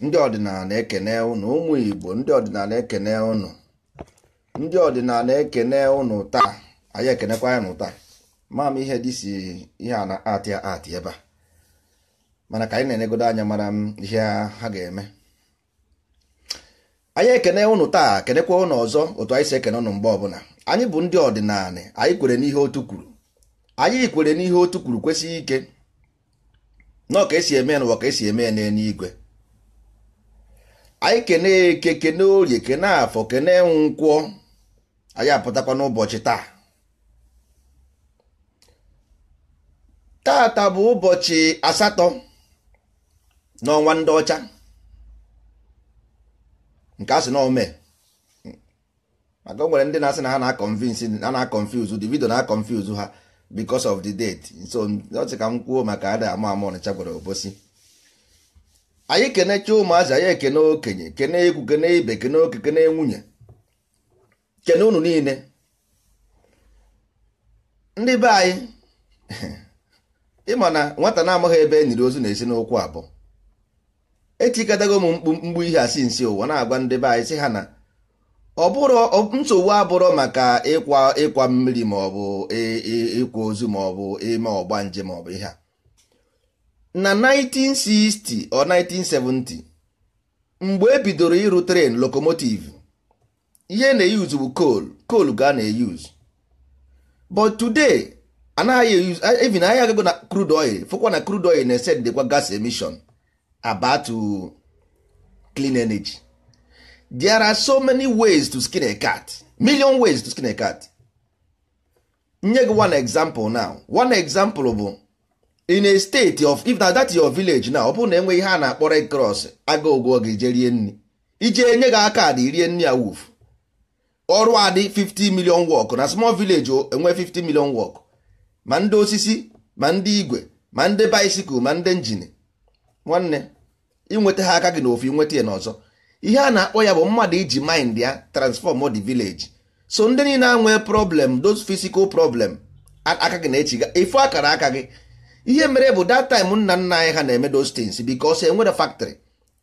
ndị ọdịnala ekene ụnụ ụmụ Igbo ndị ọdịnala ekene ụnụ ndị ọdịnala ekene ụnụ taa anyị ekenekwa ya taa maam ihe dị si ihe a na-atị atị ebe a mana ka anyị na-enegodo anya mara m ihe ha ga-eme anyị ekene ụnụ taa kenekwa ụnụ ọzọ otu anyị si ekene ụnụ mgbe ọbụla anyị bụ ndị ọdịnala anyị kwere n'ihe otu kwuru anyị kwere n'ihe otu kwuru kwesịghị ike nọọ ka esi eme na ka esi eme ya n'eluigwe anyị kene eke kene orie kene afọ kene nkwụọ anyị apụtakwa n'ụbọchị taa tata bụ ụbọchị asatọ n'ọnwa ndị ọcha nke a sị na ome maka o nwere ndị na-asị na ha na-akọnfiuzu na ha because of the date so ọtị ka m kwuo maka ada ama ama ọnịcha gwara obosi anyị kenecha ụmụazị anyị ekene okenye kene egwu kene ibe kene oke kene nwunye kene unu niile ndị be anyị ịma na nwata na-amaghị ebe e nyiri ozu na-esi n'okwu abụọ etikọtago m mkpu mgbu ihe asị nsi ụwa na-agwa ndị be anyị sị ha na ọ nsogbu abụrụ maka ịkwa ịkwa mmiri ma ọ bụ ịkwa ozu ma ọ bụ ime ọgbanje ma ọ bụ ihe a na 1960 or 1970 mgbe ebidoro ịrụ tren lokomotiv ihe na-eyuzu bụ coal coal ga na-eyuzu but today anaghị even agago na crude oil fụkwa na crude oil na dịkwa gas emission about clean energy there are so many ways to skin a cat million ways to skin a cat nye gị one example now one example bụ in a state of if na that your village now ọ bụrụ na enwe ihe a na-akpọ red cross aga ụgwọ gị je rie nri ije nye gị aka adị rie nri a ọrụ adị 50 million work na small village enwe 50 million work ma ndị osisi ma ndị igwe ma ndị bicycle ma ndị injin nwanne ịnweta ha aka gị na ofu inweta ya n'ọzọ ihe a na-akpọ ya bụ mmadụ iji mind ya transform the village so ndị niile anwee problem those physical problem aka gị na ga efu akara aka gị ihe mere bụ that time nna nna anyị ha na-eme those things because enwere factory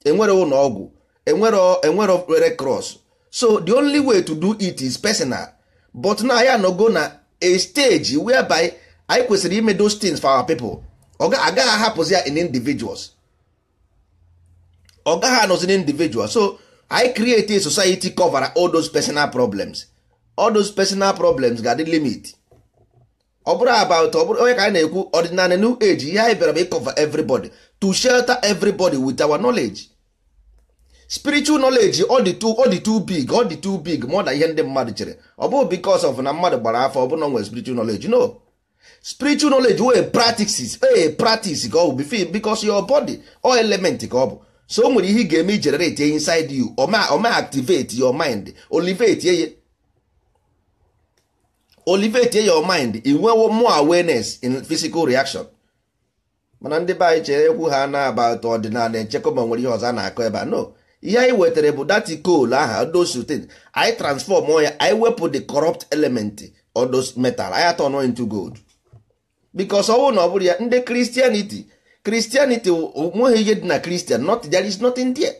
enwere ụlọ ọgwụ enwere enwere red cross so the only way to do it is personal but na ya anọgo na a stage whereby anyị kwesịrị ime those things for our people ọ agaghị ahapụzi ya in individuals ọ gaghị anọzi na individual so i create a society cover all those personal problems all those personal problems ga-adị limit ọ bụrụ about ọ bụrụ onye ka anyị na-ekwu ọdịnala new age ihe anyị bịara bụ ịcover everybody to shelter everybody with our knowledge spiritual knowledge ọ dị too big ọ dị too big more than ihe ndị mmadụ chere ọ bụghị because of na mmadụ gbara afọ ọ bụrụ na nwere spiritual knowledge no spiritual knowledge wey practices ee eh, practice ka ọ bụ bifil because your body or element ka ọ bụ so o nwere ihe ị ga-eme generate inside you ọ activate your mind olivate ye olivate your mind inwewo more awareness in physical reaction mana ndị be anyị chere ekwu ha na about ọdịnala echekwa ma nwere ihe ọzọ na-akọ ebe a no ihe anyị wetara bụ dati goal aha odosutin anyị transform ya anyị wepụ the corrupt element odos metal anyị atọ into gold because ọnwụ na ọ bụrụ ya ndị Christianity kristianiti onweghị ihe dị na kristian not there is nothing there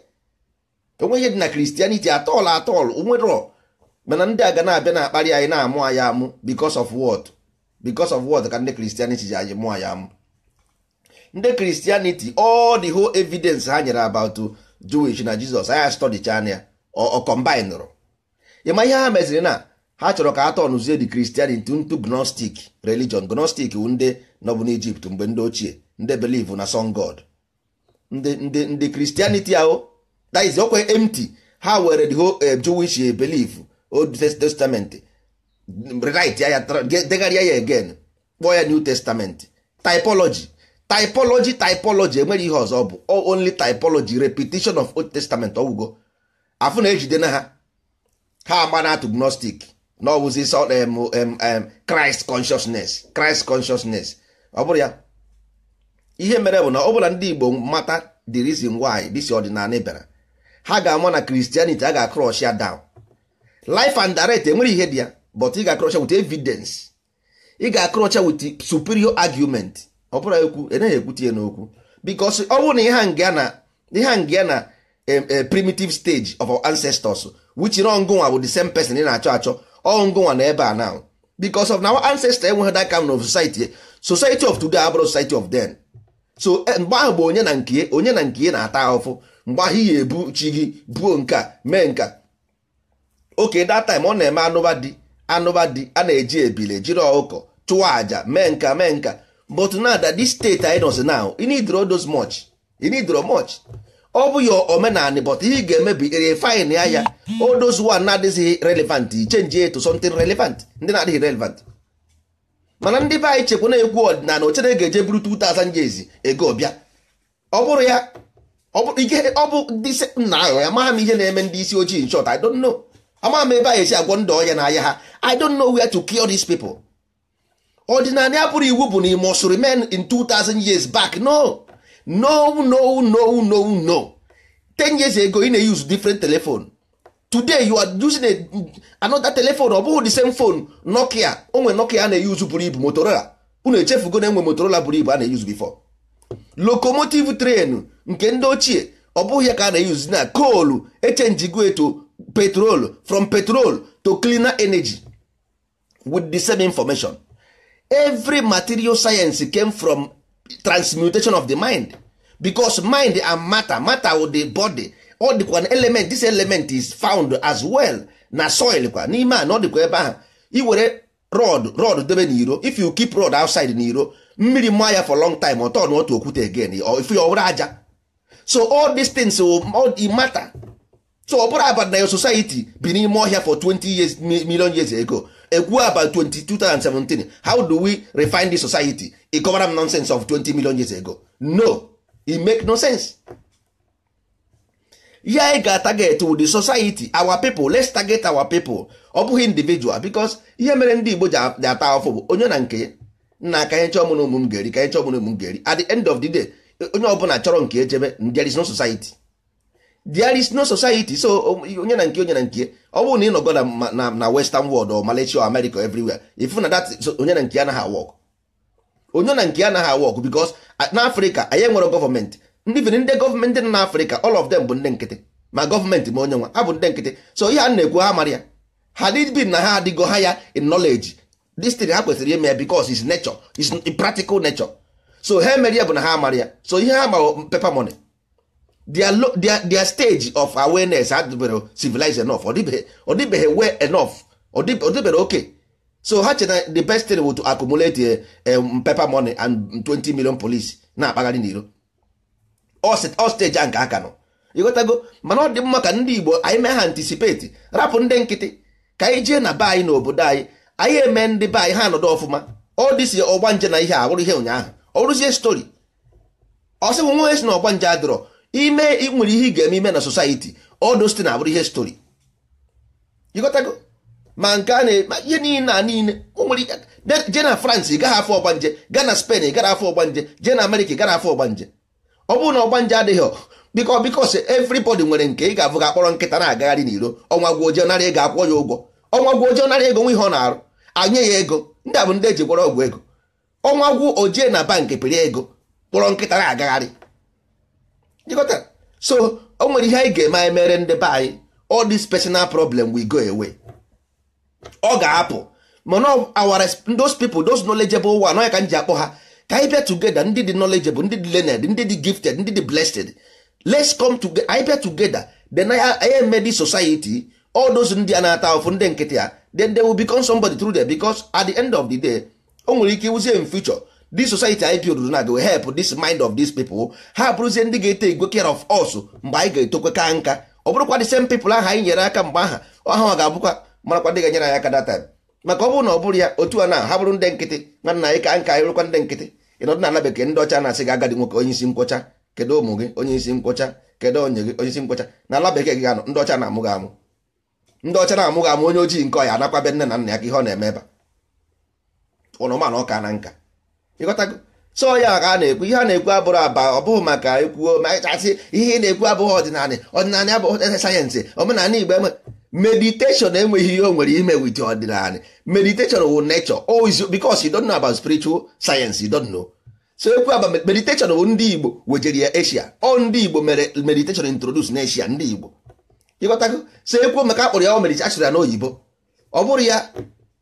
onweghị ihe dị na kristianiti atọl atọl onwerọ mana ndị ga na-abịa na-akparị anyị na-amụ anyị amụ because of what because of what ka ndị kristianity ji anyị mụọ anyị amụ ndị kristianity all the whole evidence ha nyere about jewish na jizọs anya study channel ọ combine ịma ihe ha meziri na ha chọrọ ka a tọnụzie the christianity ntu gnostic religion gnostic ndị nọbụ n'egypt mgbe ndị ochie ndị believe na son god ndị ndị ndị Christianity ahụ that is okwe empty ha were the whole eh, Jewish eh, belief Old Testament rewrite ya degharịa ya again kpọọ ya New Testament typology typology typology enweghị ihe ọzọ bụ only typology repetition of Old Testament ọgwụgo afụ na-ejide na ha ha ama na atụ gnostic na ọwụzi Christ consciousness Christ consciousness ọ bụrụ ya ihe mere bụ na ọ bụla ndị Igbo mata the reason why this ọdịnala bịara ha ga-ama na Christianity a ga-akrosh ya down life and direct enwere ihe dị ya but ị ga-akrosh with evidence ị ga-akrocha with superior argument ọ bụla ekwu enaghị ekwute ya n'okwu because ọ bụrụ na ihe nga na na primitive stage of our ancestors which na ọngụnwa bụ the same person ị na-achọ achọ ọngụnwa na ebe a now because of na our ancestors enweghị that kind of society society of today abụrụ society of then so eh, mgbe ahụ bụ onye na nke e, onye na nke e na-ata ahụfụ mgbe ahụ ya ebu chi gị buo nke mee nka oke that time ọ na-eme anụba dị anụba dị a na-eji ebile jiri ọkụkọ chụọ àjà mee nka mee nka but now that this anyị nọzi now you need much ọ bụ ya omenanị but ihe ga emebi bụ ya ya all na-adịghị relevant chenji eto something relevant ndị na-adịghị relevant mana ndị be anyị chekwa na egwu ọdịnala ochere ga-eje buru 2000 years ego ọbịa ọ bụrụ ya ọ bụ ndị nna ahụ ya maha m ihe na-eme ndị isi ojii nchọt I don't know amaghị m ebe anyị esi agwọ ndụ ọya n'ahịa ha I don't know where to kill these people ọdịnala ya bụrụ iwu bụ na ime ọsụ in 2000 years back no no no no no no 10 years ago ị na-use different telephone today you are using a, another telephone ọ bụghị the same phone nokia onwe nokia a na-eyuzu buru ibu motorola unu echefugo na enwe motorola buru ibu a na-eyuzu before locomotive train nke ndị ochie ọ bụghị ya ka a na-eyuzu na coal echenjigo to petrol from petrol to cleaner energy with the same information every material science came from transmutation of the mind because mind and matter matter with the body ọ dịkwa na element this element is found as well na soil kwa n'ime a na ọ dịkwa ebe ahụ iwere rod rod debe iro if you keep rod outside iro mmiri mma ya for long time ọ tọọ na otu okwute again if ọ were aja so all these things will matter so ọ bụrụ about na your society bi n'ime ọhịa for 20 years million years ago ekwu about 2017 how do we refine this society e cover nonsense of 20 million years ago no e make no sense ya anyị ga target with the society our people let's target our people ọ bụghị individual because ihe mere ndị Igbo ji ata afọ bụ onye na nke nna ka chọọ mụ na ụmụ m ga-eri ka chọọ mụ na ụmụ m ga-eri at the end of the day onye ọbụla chọrọ nke echebe there is no society there is no society so um, onye na nke onye na nke ọ bụrụ na ị nọgo na na western world or Malaysia or America everywhere ifu na that onye na nke anaghị awọk onye na nke anaghị awọk because uh, n'Africa anyị nwere gọọmenti even ndị gọọmenti nọ n'afrịka all of them bụ ndị nkịtị ma gọọmenti ma onye nwa ha bụ ndị nkịtị so ihe a na-ekwu ha mara ya ha dịbi na ha adịgo ha ya in knowledge this ha kwesịrị ime ya because is nature is practical nature so ha emere ya bụ na ha mara ya so ihe ha ma pepa money their, their, their stage of awareness adịbere civilized enough ọdịbeghị well enough ọdịbere okay so ha chere the best thing bụ to accumulate a, eh, a um, paper money and 20 million police na-akpagharị n'iro ọsteji a nke aka nọ ịghọtago mana ọ dị mma ka ndị Igbo anyị mee ha antisipeti rapụ ndị nkịtị ka anyị jee na be anyị n'obodo anyị anyị eme ndị be anyị ha anọdụ ọfụma ọ dịsi ọgba nje na ihe a ihe ụnyaahụ ọ rụzie stori ọ sịgwụ si na ọgba nje adịrọ ime nwere ihe ị ga-eme ime na society ọdụ site na ihe stori ịghọtago ma nke a na ihe niile a niile jee na France ị gaghị afọ ọgbanje gaa na Spain ị gara afọ ọgbanje jee na Amerịka ị gara afọ ọgbanje ọ bụrụ na ọgba nje adịghị biko biko si everybody nwere nke ị ga-abụ ga-akpọrọ nkịta na-agagharị n'iro ọnwa gwa ojii nara ego akwụọ ya ụgwọ ọnwa gwa ojii nara ego nwa ihe ọ na-arụ anye ya ego ndị a bụ ndị eji gwọrọ ọgwụ ego ọnwa gwu ojii e na bankị pịrị ego kpọrọ nkịta na-agagharị so o nwere ihe anyị ga-eme anyị mere ndị be anyị all this personal problem we go away ọ ga-apụ mana awara those people those knowledgeable one ọ ya ka m ji akpọ ha ka anyị bịa together ndị dị knowledgeable ndị dị learned ndị dị gifted ndị dị blessed let's come together anyị bịa together then anyị eme this society all those ndị a na-ata ụfụ ndị nkịtị ya then they will become somebody through there because at the end of the day o nwere ike iwuzie in future this society anyị build na go help this mind of these people ha bụrụzie ndị ga-ete igwe care of us mgbe anyị ga-etokwe ka nka ọ bụrụkwa the same people ahụ anyị nyere aka mgbe aha ọha ga-abụkwa marakwa ndị ga-enyere anyị aka that time maka ọ bụrụ na ọ bụrụ ya otu a na ha bụrụ ndị nkịtị nwanna anyị ka nka anyị rụkwa ndị nkịtị ịnọ dị na bekee ndị ọcha na-asị gị agadi nwoke onye isi nkwọcha kedụ ụmụ gị onye isi nkwọcha kedụ onye gị onye isi nkwọcha na ala bekee gị ganọ ndị ọcha na-amụ gị amụ ndị ọcha na-amụ gị amụ onye ojii nke ọya be nne na nna ya ka ihe ọ na-eme ebe ụnụmanụ ọka na nka ịghọtago ya ka a na-ekwu ihe a na-ekwu abụrụ aba ọ bụghị maka ekwuo ma asị ihe ị na-ekwu abụghị ọdịnala ọdịnala abụghị sayensị omenala igbo enwe meditation enweghị ihe o nwere ime with ọdịnala meditation wụ nature always oh, because you don't know about spiritual science you don't know so ekwu aba meditation wụ ndị Igbo wejere ya Asia ọ ndị Igbo mere meditation introduce na ndị Igbo ịghọtago so ekwu maka akpọrọ ya meditation achụrụ ya n'oyibo ọ bụrụ ya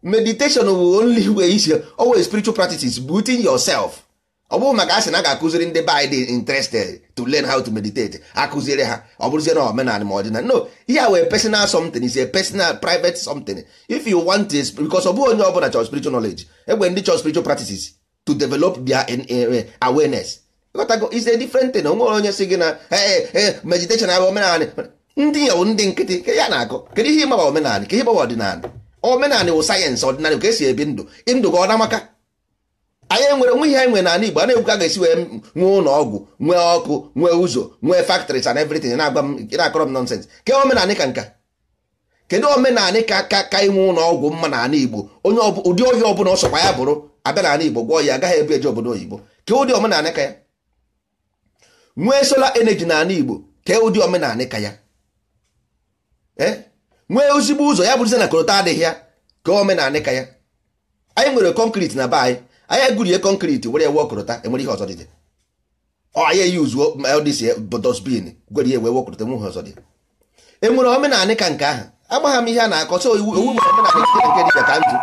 meditation wụ only way isi always spiritual practices but in yourself ọ bụrụ maka asị na ga-akụziri ndị be anyị dị interested to learn how to meditate akụziri ha ọ bụrụzie na omenala ma ọdịnala no ihe a wee personal something is a personal private something if you want it because ọ bụ onye ọbụla chọrọ spiritual knowledge egbe ndị chọrọ spiritual practices to develop their awareness ịghọtago is a different thing onwere onye si gị na meditation abụ omenala ndị ya bụ ndị nkịtị ka ya na akụ kedu ihe ịgbawa omenala ka ihe ịgbawa ọdịnala omenala wụ sayensị ọdịnala ka esi ebi ndụ ndụ gị ọ na-amaka anyị nwere nwe ihe anyị nwere n'ala Igbo a na-egwu ka ga-esi wee nwee ụlọ ọgwụ nwee ọkụ nwee ụzọ nwee factories and everything na-akọrọ m nonsense ke omenanị ka nka kedu omenanị ka ka ka inwe ụlọ ọgwụ mma ala Igbo onye ụdị ohi ọbụla ọsọkwa ya bụrụ abịa ala Igbo gwọ ya agaghị ebu eje obodo oyibo ke ụdị omenanị ka ya nwee solar energy ala Igbo ke ụdị omenanị ka ya e? nwee ozigbo ụzọ ya bụrụzie na korota adịghị ya ke omenanị ka ya anyị nwere kọnkriti na be anyị anyị gurie kọnkriti were ewe ọkọrọta enwere ihe ọzọ dị anyị eyuzuo dosbin gwere ewe wekọrọta enwe ihe ọzọ dị enwere omenanị ka nke ahụ agbagha m ihe a na-akọ so iwu owu nwere omenanị nke dị ka ndụ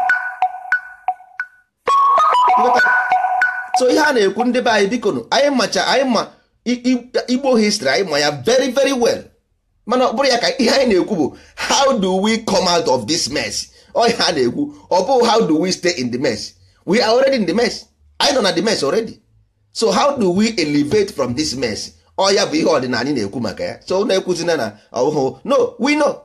so ihe a na-ekwu ndị be anyị biko anyị macha anyị ma igbo histrị anyị ma ya very very well mana ọ bụrụ ya ka ihe anyị na-ekwu bụ how do we come out of this mess ọ ihe na-ekwu ọ bụghị how do we stay in the mess we are already in the mess anyị nọ na the mess already so how do we elevate from this mess oya oh, ya bụ ihe ọdịnala anyị na-ekwu maka ya so na-ekwuzina na ọhụhụ oh, oh, no we know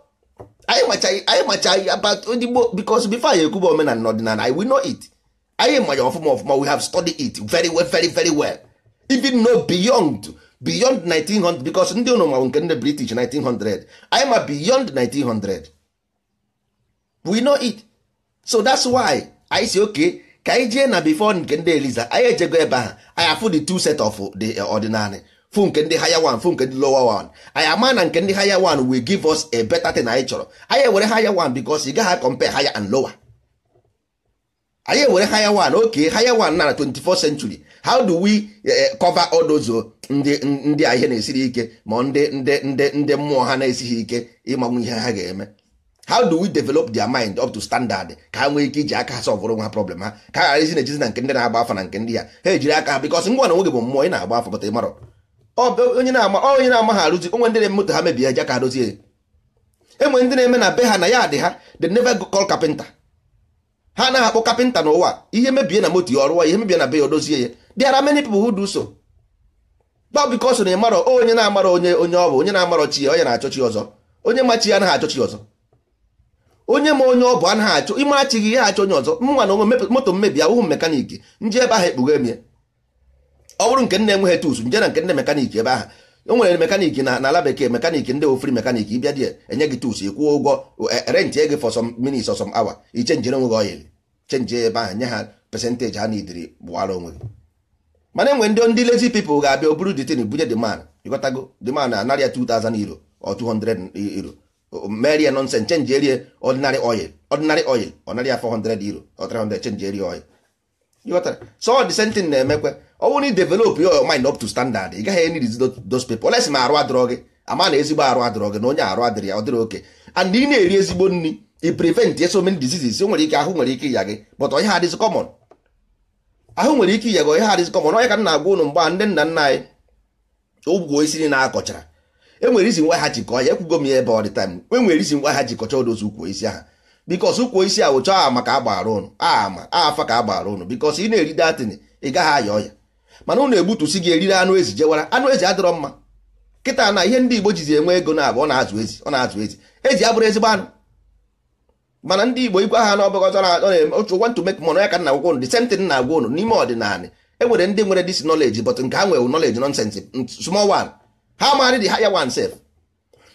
anyị macha anyị macha about odigbo because before anyị ekwuba omenala na ọdịnala anyị we know it anyị manya ọfụma ọfụma we have studied it very well very very well even know beyond beyond 1900 because ndị ụnụ mawụ nke ndị british 1900 anyị ma beyond 1900 we know it so that's why isi oke. okay ka anyị jee na before nke ndị eliza anyị ejego ebe ahụ anyị afụ the two set of the eh, ordinary fu nke ndị haya one fu nke ndị lower one anyị ama na nke ndị haya one will give us a better thing anyị chọrọ anyị ewere higher one because ị gaghị compare higher and lower anyị ewere haya one oke higher one na 24th century how do we eh, eh, cover all those oh, ndị ndị ihe na-esiri ike ma ndị ndị ndị ndị mmụọ ha na-esighị ike ịmanwụ ihe ha ga-eme how do we develop their mind up to standard ka ha nwee ike iji aka ha sọvụrụ nwa problem ha ka ha ghara na ejizi na nke ndị na-agba afọ na nke ndị ya ha ejiri aka ha bikọs ngwa na nwoge bụ mmụọ ị na-agba afa pụta ịmarọ onye na-ama ha arụzi onwe ndị na-ememoto ha mebie ja ka ha dozie enwe ndị na-eme na be ha na ya dị ha the never call kapịnta ha anaghị akpọ kapịnta n'ụwa ihe mebie na moto ya ọrụwa ihe mebie na be ya dozie ya there ara many people who do so gba bikọs na ịmarọ onye na-amarọ onye onye ọ bụ onye na-amarọ chi ya onye na-achọ chi ọzọ onye ma ya anaghị achọ chi ọzọ onye ma onye ọ bụ anaghị achọ ime achịghị ihe achọ onye ọzọ mnwa na onwe moto mmebi ahụhụ mekaniki nji ebe ahụ ekpughe emie ọ bụrụ nke nne enweghị tus nje na nke nne mekaniki ebe ahụ o nwere mekaniki na ala bekee mekaniki ndị ofri mekaniki ịbịa dị enye gị tus ịkwụọ ụgwọ e, rent gị for some minutes or awa hour ichenjire nwegh gị oyili chenji ebe ahụ nye ha pesentaji ha na idiri gbụwara onwe gị mana enwe ndị ndị lezi pepl ga-abịa o buru ditin bunye demand ịghọtago demand anarịa 2000 euro or 200 e, euro merie nonsen chenji erie ordinary oil ordinary oil ọnarị ya 400 euro or 300 chenji erie oil ghọtara so the same thing na-emekwe eh, ọ oh, bụrụ na ị develop your mind up to standard ị gaghị enid those people oles ma arụ adịrọ gị ama na ezigbo arụ adịrọ gị na onye arụ adịrị ya ọ dịrị oke and ị na-eri ezigbo nri ị prevent so many diseases o nwere ike ahụ nwere ike ịya gị but onye ha adịzi common ahụ nwere ike ịya gị onye ha adịzi common onye ka m na-agwa ụnụ mgbe ndị nna nna anyị ogwugwo isi na akọchara enwere isi nwa ha jikọ ya ekwugo m ya ebe ọ dị time enwere isi nwa ha jikọcha odozi ukwu isi ha bikos ukwu isi ahụ chọọ ama ka a ụnụ ama afa ka a ụnụ bikos ị na-eri datin ị gaghị aya ọya mana ụnụ egbutusi gị eriri anụ ezi jewara anụ ezi adịrọ mma kịta na ihe ndị igbo jizi enwe ego na abụ ọ na-azụ ezi ọ na-azụ ezi ezi abụrụ ezigbo anụ mana ndị igbo igwe ha na ọbụghị otu want to mek money ya ka nna gwụkwọ ụnụ the same na-agwa ụnụ n'ime ọdịnala e nwere ndị nwere this knowledge but nke ha nwere knowledge nonsense small one ha marry the higher one self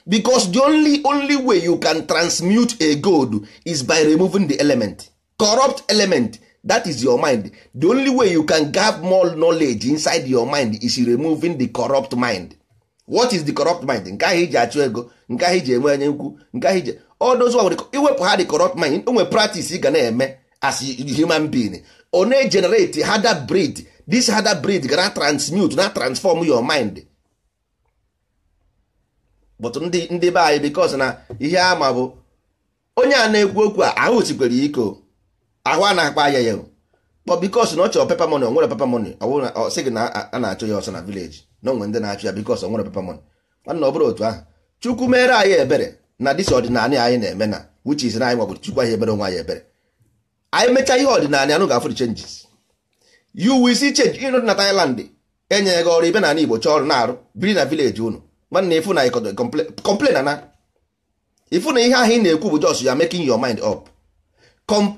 because the only only way you can transmute a gold is by removing the element corrupt element that is your mind the only way you can get more knowledge inside your mind is removing the corrupt mind what is the corrupt mind nke ahụ iji achụ ego nke ahụ iji enwe onye nkwu nke ahụ iji odozu iwepụ ha the corrupt mind onwe practice ị ga na-eme as human being ọ na-generate hada breed this hada breed gana transmute na transform your mind but ndị ndị be anyị bikos na ihe ama bụ onye a na-ekwu okwu a ahụ tikwere iko ahụ a na-akpa ya ya kpọ bikos na ọ chọrọ pepa moni onwere pepa moni sị gị na a na-achọ ya ọsọ na vileji na onwe ndị na-achọ ya bikos onwere pepa moni nwanna ọ bụrụ otu ahụ chukwu mere anyị ebere na dịsi ọdịnala anyị na-eme na wuchi na anyị nwabụrụ chukwu anyị ebere onwe anyị ebere anyị mechaa ihe ọdịnala anụ ga-afụrụ chenjis yu wisi chenji ịnụ na Thailand enyeghị gị ọrụ ibe na ala Igbo chọọ ọrụ na-arụ biri na vileji unu nwanne ifu na ikodo complain na ifu na ihe ahụ ị na-ekwu bụ jos ya making your mind up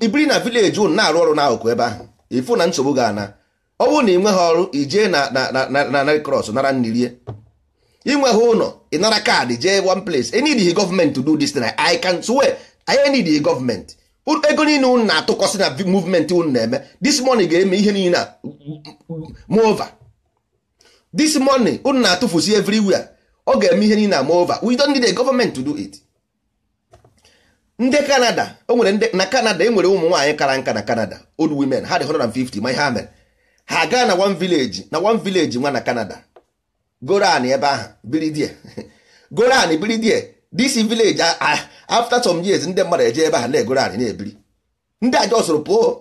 ibiri na village unu na-arụ ọrụ n'akụkụ ebe ahụ ifu na nsogbu ga-ana ọ bụrụ na ị nweghị ọrụ ijee na na red cross nara nnirie inweghị ụlọ nara kaadị jee one place the government to do this thing I can swear I need the government ego niile ụnụ na atụkwasị na movement ụnụ na-eme this money ga-eme ihe niile move over this money ụnụ na-atụfusi everywhere ọ ga-eme ihe niile ama over we don't need a government to do it ndị Kanada o nwere ndị na Kanada e nwere ụmụ nwaanyị kara nka na Kanada old women ha dị 150 ma ihe ha mere ha gaa na one village na one village nwa na Kanada. goran ebe ahụ biridie goran biridie Dc village after some years ndị mmadụ eje ebe ahụ na-egoro na-ebiri ndị a jọsụrụ pụọ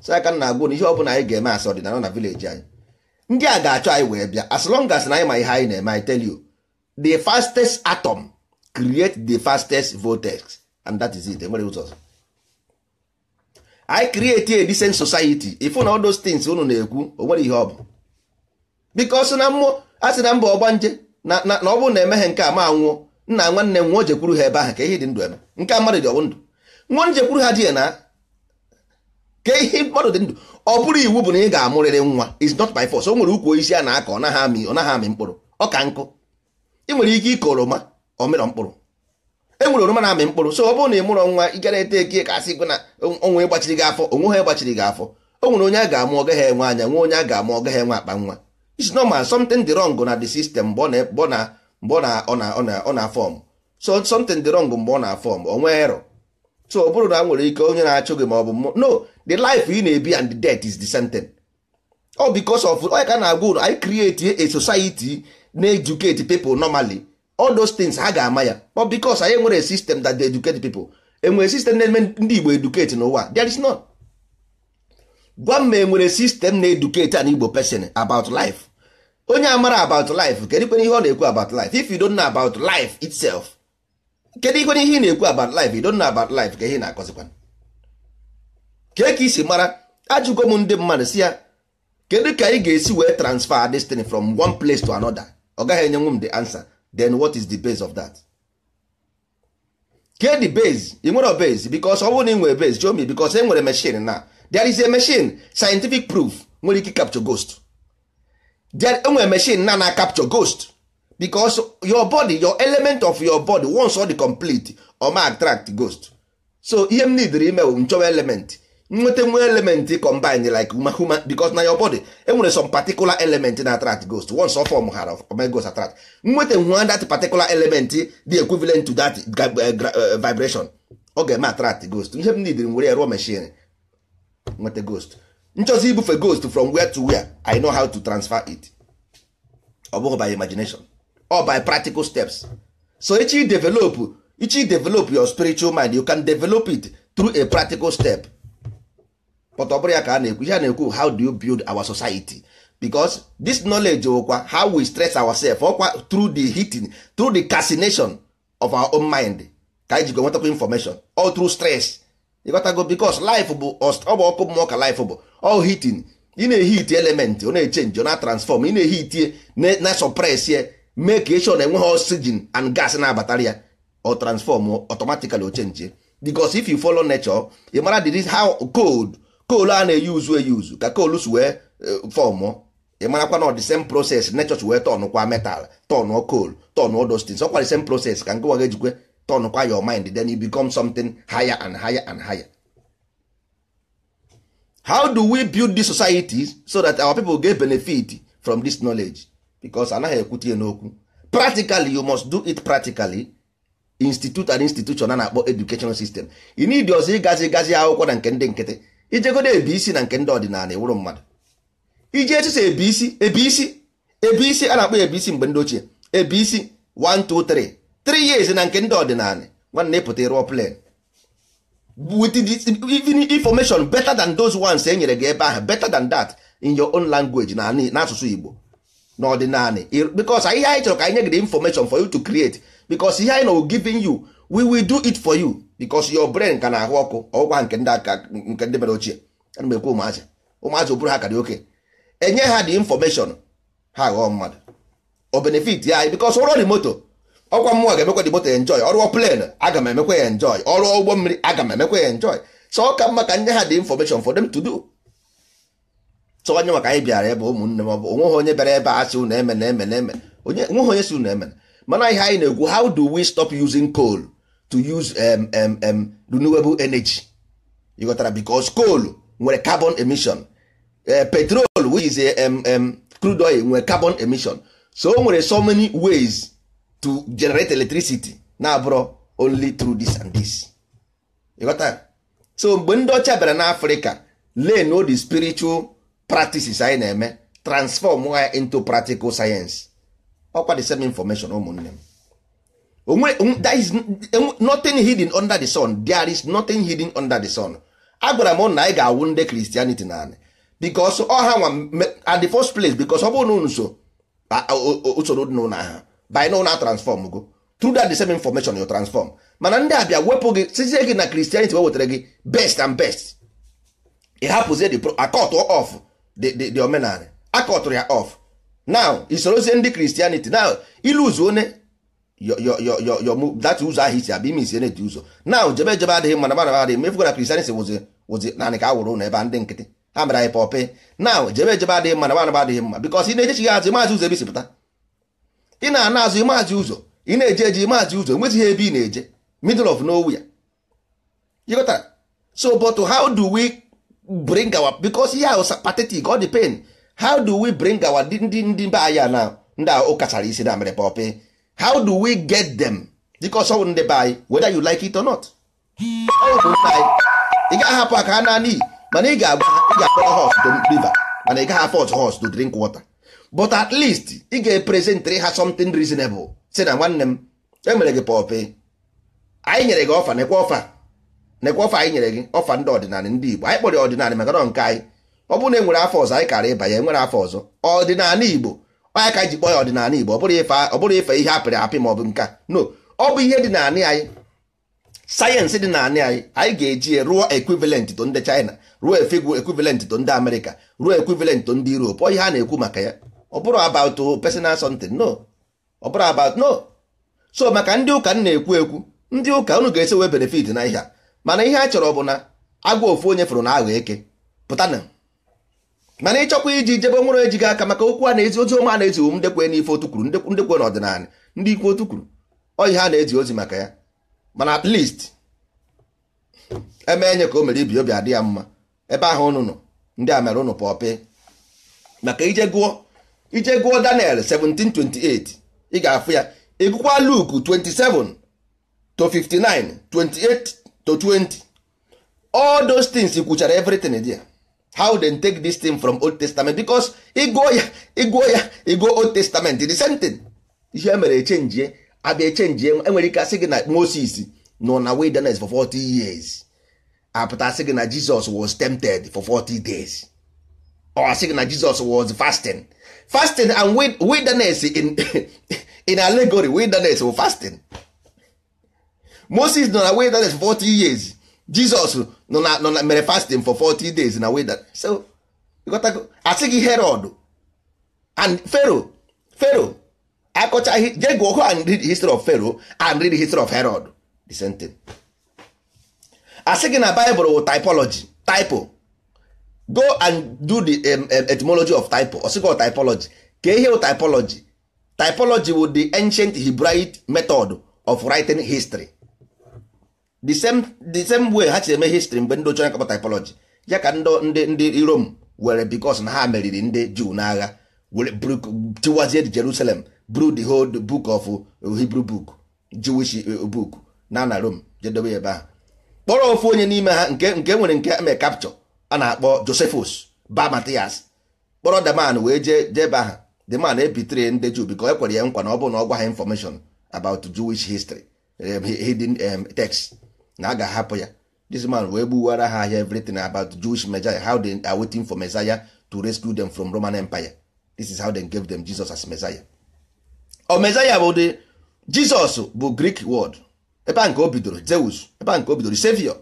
si aka na agwụ na ihe ọbụla anyị ga-eme asị ọdịnala na vileji anyị ndị a ga-achọ anyị wee bịa as long as na anyị ma ihe anyị na-eme anyị tell you the fastest atom create the fastest vortex and that is it enwere ụzọ ọzọ create a decent society ifu na all those things unu na-ekwu o nwere ihe ọ bụ because na mmụọ a sị na mba ọgbanje na ọ bụrụ na emeghe nke a ma nwụọ nna nwanne nwa jekwuru ha ebe ahụ ka ihe dị ndụ eme nke a mmadụ dị ọwụ ndụ nwa njekwuru ha dị na ka ihe mmadụ dị ndụ ọ bụrụ iwu bụ na ị ga-amụrịrị nwa is not by force o nwere ukwu isi a na-akọ ọ naghị amị mkpụrụ ọ ka nkụ ị nwere ike ịkọ oroma ọ mịrọ e nwere oroma na-amị mkpụrụ so ọ bụrụ na ị mụrọ nwa ịgara ete eke ka asị na onwe gbachiri gị afọ onwe ha gbachiri gị afọ o nwere onye a ga-amụ ọgaghị enwe anya nwe onye a ga-amụ ọgaghị enwe akpa nwa it's normal something dị wrong na the system mgbe ọ na-afọm so something dị wrong mgbe ọ na-afọm o nwee so ọ bụrụ na nwere ike onye na-achụ gị ma ọ bụ no the life ị na-ebi and the death is the same thing ọ because of onye ka na-agwa ụlọ anyị create a society na-educate people normally all those things ha ga-ama ya but because anyị nwere system that they educate people enwere system na-eme ndị Igbo educate n'ụwa there is none gwa m ma enwere system na-educate an Igbo person about life onye a amara about life kedu ikwe ihe ọ na-ekwu about life if you don't know about life itself kedu ikwe ihe ị na-ekwu about life you don't know about life ka ihe na-akọzikwa kee ka isi mara ajụgo m ndị mmadụ si ya kedu ka ị ga-esi wee transfer this thing from one place to another ọ gaghị enyenwu m the answer then what is the base of that Get the base ị nwere base because ọ bụrụ na ị nwere base show me because e nwere machine na there is a machine scientific proof nwere ike capture ghost there enwere machine na na capture ghost because your body your element of your body once ọ the complete ọ ma attract ghost so ihe m nidiri ime bụ nchọwa element nweta nwe element combine like human because na your body enwere some particular element na attract ghost once of form ha ghost attract nweta nwa that particular element dị equivalent to that eh, vibration ọ ga-eme attract ghost ihe m nidiri nwere ya rụọ machine nweta ghost nchọzi ibufe ghost from where to where i know how to transfer it ọ bụghị by imagination or by practical steps so echi develop echi develop your spiritual mind you can develop it through a practical step pọtọ ọ ka a na-ekwu ihe a ekwu how do you build our society because this knowledge kwa how we stress ourselves ọkwa through the heating through the casination of our own mind ka anyị jikọ nwetakwa information all through stress ịgotago because life bụ ọ bụ ọkụ mmụọ ka life bụ all heating ị na heat element ọ na-echenji o na-transform ị na-ehitie na suppress ye mee ka eshon enweghị oxygen and gas na-abatara ya ọ transform automatically o change. because if you follow nature ị mara how cold koolu a na-eyi uzu eyi uzu ka koolu si wee eh, fọmụọ ị na ọ dị same process nechọch wee tọnụkwa metal tọnụọ koolu tọnụọ dostins ọkwa dị same process ka nkụwa ga-ejikwe tọnụkwa your mind then you become something higher and higher and higher how do we build this society so that our people get benefit from this knowledge because anaghị ekwutie n'okwu practically you must do it practically institute and institution a na-akpọ educational system ị need ọzọ ịgazi gazi akwụkwọ na nke ndị nkịtị ijegodo ebi isi na nke ndị ọdịnala ewuru mmadụ iji echiche ebi isi ebi isi ebi isi a na-akpọ ebi isi mgbe ndị ochie ebi isi 1 2 3 3 years na nke ndị ọdịnala nwanne ịpụta ịrụọ plan with the information better than those ones e nyere gị ebe ahụ better than that in your own language na n'asụsụ Igbo n'ọdịnala because ihe anyị chọrọ ka anyị nye gị the information for you to create because ihe anyị na giving you we will do it for you because your brain ka na-ahụ ọkụ ọgwụkwa nke ndị aka nke ndị mere ochie ana m ekwu ụmụazị ụmụazị bụrụ ha karị oke enye ha dị infọmeshọn ha aghọọ mmadụ o benefit ya bikos ọrụ dị moto ọkwa mmụọ ga-emekwa dị moto ya enjoy ọrụ plen aga m emekwa ya enjoy ọrụ ụgbọ mmiri aga m emekwa ya enjoy so ọ ka mma ka nye ha dị infọmeshọn for them to do so onye maka anyị bịara ebe ụmụnne m ọ bụ onweghị onye bịara ebe a sị unu eme na eme na eme onweghị onye si unu eme mana ihe anyị na-egwu how do we stop using coal to use um, um, um, renewable energy you ghọtara because coal nwere carbon emission uh, petrol which is a, um, um, crude oil nwere carbon emission so o nwere so many ways to generate electricity na-abụrụ only through this and this you so mgbe ndị ọcha bịara n'afrịka len the spiritual practices anyị na-eme transform ya into practical science ọkwa the same information ụmụnne m that is nothing hidden under the sun there is nothing hidden under the sun agwara m na anyị ga-awụ ndị christianity na anị bikos ọha nwa at the first place bikos ọ bụrụ na unu so usoro dị n'ụlọ ha by na transform go through that the same information you transform mana ndị abịa wepụ gị sizie gị na christianity we wetara gị best and best ị hapụzie the akọt of the omenala akọtụrụ ya off now isorozie ndị christianity now iluzu one data ụzọ ahụ isi abịa ime isi na-eti ụzọ na jebe jebe adịghị mana mana adịghị mefu na kristianity wụzi wụzi naanị ka a wụrụ ụlọ ebe ndị nkịtị ha mere anyị pọpị na jebe jebe adịghị mana mana adịghị mma because ị na-ejechi ya azụ maazị ụzọ ebe isipụta ị na-ana azụ maazị ụzọ ị na-eje eji maazị ụzọ enwezighị ebe ị na-eje middle of nowhere you got so but how do we bring our because ihe ahụ pathetic ọ dị pain how do we bring our ndị ndị be anyị na ndị ụkachara isi na mere pọpe how do we get them because ọsọ wụ ndị be whether you like it or not ị gaghị hapụ aka ha naanị mana ị ga-akpọrọ hos to river mana ị gaghị afford hos to drink water but at least ị ga-epresentịrị ha something reasonable si na nwanne m emere gị pọpị anyị nyere gị ọfa nekwa ọfa nekwa ọfa anyị nyere gị ọfa ndị ọdịnala ndị Igbo anyị kpọrọ ọdịnala maka na nke anyị ọ bụrụ na e nwere afọ ọzọ anyị kara ịbanye enwere afọ ọzọ ọdịnala Igbo anyị ka ji kpọọ ya ọdịnala Igbo ọ bụrụ ife ihe apịrị apị ma ọ bụ nka no ọ bụ ihe dị naanị anyị sayensị dị na-anị anyị anyị ga-eji rụọ ekwivalent to ndị China ruo efegwu ekwivalent to ndị Amerịka ruo ekwivalent to ndị Europe ọ ihe a na-ekwu maka ya ọ bụrụ about personal something no ọ bụrụ about no so maka ndị ụka na-ekwu ekwu ndị ụka unu ga-esi wee benefit na ihe a mana ihe a chọrọ bụ na agwa ofu onye fụrụ na aghọ eke pụtana mana ịchọkwa iji jebe nwere ejighị aka maka okwu a na-ezi ozi ọma na-ezi ndekwe n'ife otu ndekwe n'ọdịnala ndị ikwu otu kwuru oyi ha na-ezi ozi maka ya mana at least eme enye ka o mere ibi obi adị ya mma ebe ahụ unu nọ ndị a mere ụnụ pọpị maka ije gụọ ije gụọ Daniel 17:28 ị ga-afụ ya ịgụkwa luk 27 to 59 28 to 20 all those things kwuchara everything ya. how dem take this thing from old testament because ịgụọ ya ịgụọ ya ịgụọ old testament the same thing ihe e mere echenjie abịa echenjie enwere ike asị gị na moses nọ na wilderness for 40 years apụta asị gị na jesus was tempted for 40 days or asị gị na jesus was fasting fasting and wilderness in, in allegory wilderness for fasting moses nọ na wilderness for 40 years jesus nọ na mere fasting for 40 days na weda so asị gị herod and pharaoh pharaoh akọcha je go and read history of pharaoh and read history of herod the same thing asị na bible wụ typology typo go and do the um, etymology of typo or typology ka ihe typology typology wụ the ancient hebraic method of writing history the same the same way ha si eme history mgbe ndị ochie na-akpọ typology ya ka ndị ndị Rome were because na ha meriri ndị Jew n'agha were tiwazie Jerusalem bru the whole book of Hebrew book Jewish eh, book na na Rome jedobe ebe ahụ kpọrọ ofu onye n'ime ha nke nke e nwere nke eme capture a na-akpọ Josephus ba Matias kpọrọ the wee jee jebe aha the man ebitere ndị Jew because ekwere ya nkwa na ọ bụrụ na ọ gwa ha information about Jewish history um, hidden um, text na a ga-ahapụ ya this man wee gbuwara ha ahịa everything about Jewish Messiah how they are waiting for Messiah to rescue them from Roman Empire this is how they gave them Jesus as Messiah o oh, Messiah bụ the Jesus bụ Greek word ebe a nke o bidoro Zeus ebe a nke o bidoro savior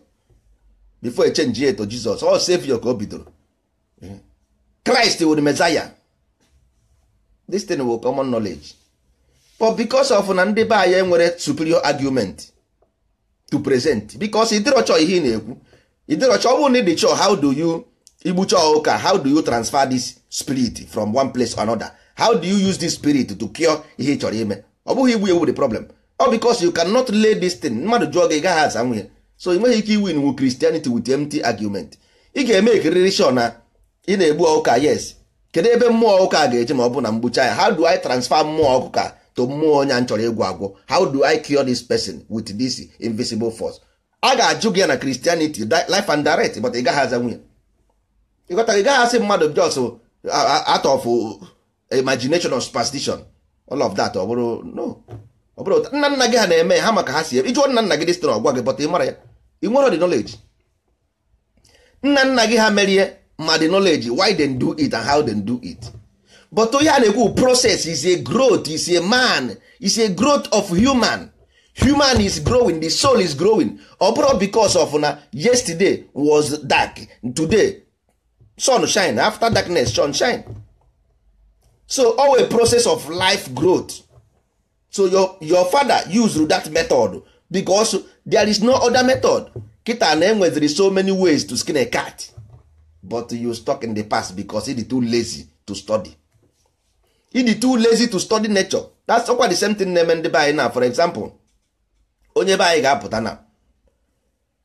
before e change yet to Jesus ọ savior ka o bidoro Christ wụ Messiah this thing will common knowledge but because of na ndị be nwere superior argument to present because ịdịrọchọ ihe ị na-ekwu ịdịrọchọ ọ bụrụ na ịdị chọ how do you igbucha ụka how do you transfer this spirit from one place to another how do you use this spirit to cure ihe ị chọrọ ime ọ bụghị igbu ewu the problem ọ because you cannot lay this thing mmadụ jụọ gị gaghị aza nwunye so ị nweghị ike iwu wu Christianity with empty argument ị ga-eme ekiriri sure na ị na-egbu ọụka yes kedu ebe mmụọ ụka ga-eje ma ọ bụ na mgbucha ya how do I transfer mmụọ ọkụka to mmụọ onye a chọrọ ịgwọ agwọ how do I cure this person with this invisible force a ga-ajụ gị ya na Christianity life and direct but ị gaghị aza nwunye ịghọta ị gaghị asị mmadụ jos uh, uh, out of uh, imagination or superstition all of that ọ bụrụ no ọ bụrụ nna nna gị ha na-eme ha maka ha si ebe ịjụọ nna nna gị dịstịrị ọgwa gị but ị ya ị nwere the knowledge nna nna gị ha merie ma the knowledge why they do it and how they do it but onye a process is a growth is a man is a growth of human human is growing the soul is growing abroad because of na yesterday was dark today sun shine after darkness sun shine so always process of life growth so your, your father used that method because there is no other method kita na enweziri so many ways to skin a cat but you stuck in the past because e is too lazy to study ịdị too lazy to study nature that's ọkwa the same thing na-eme ndị be anyị na for example onye be anyị ga-apụta na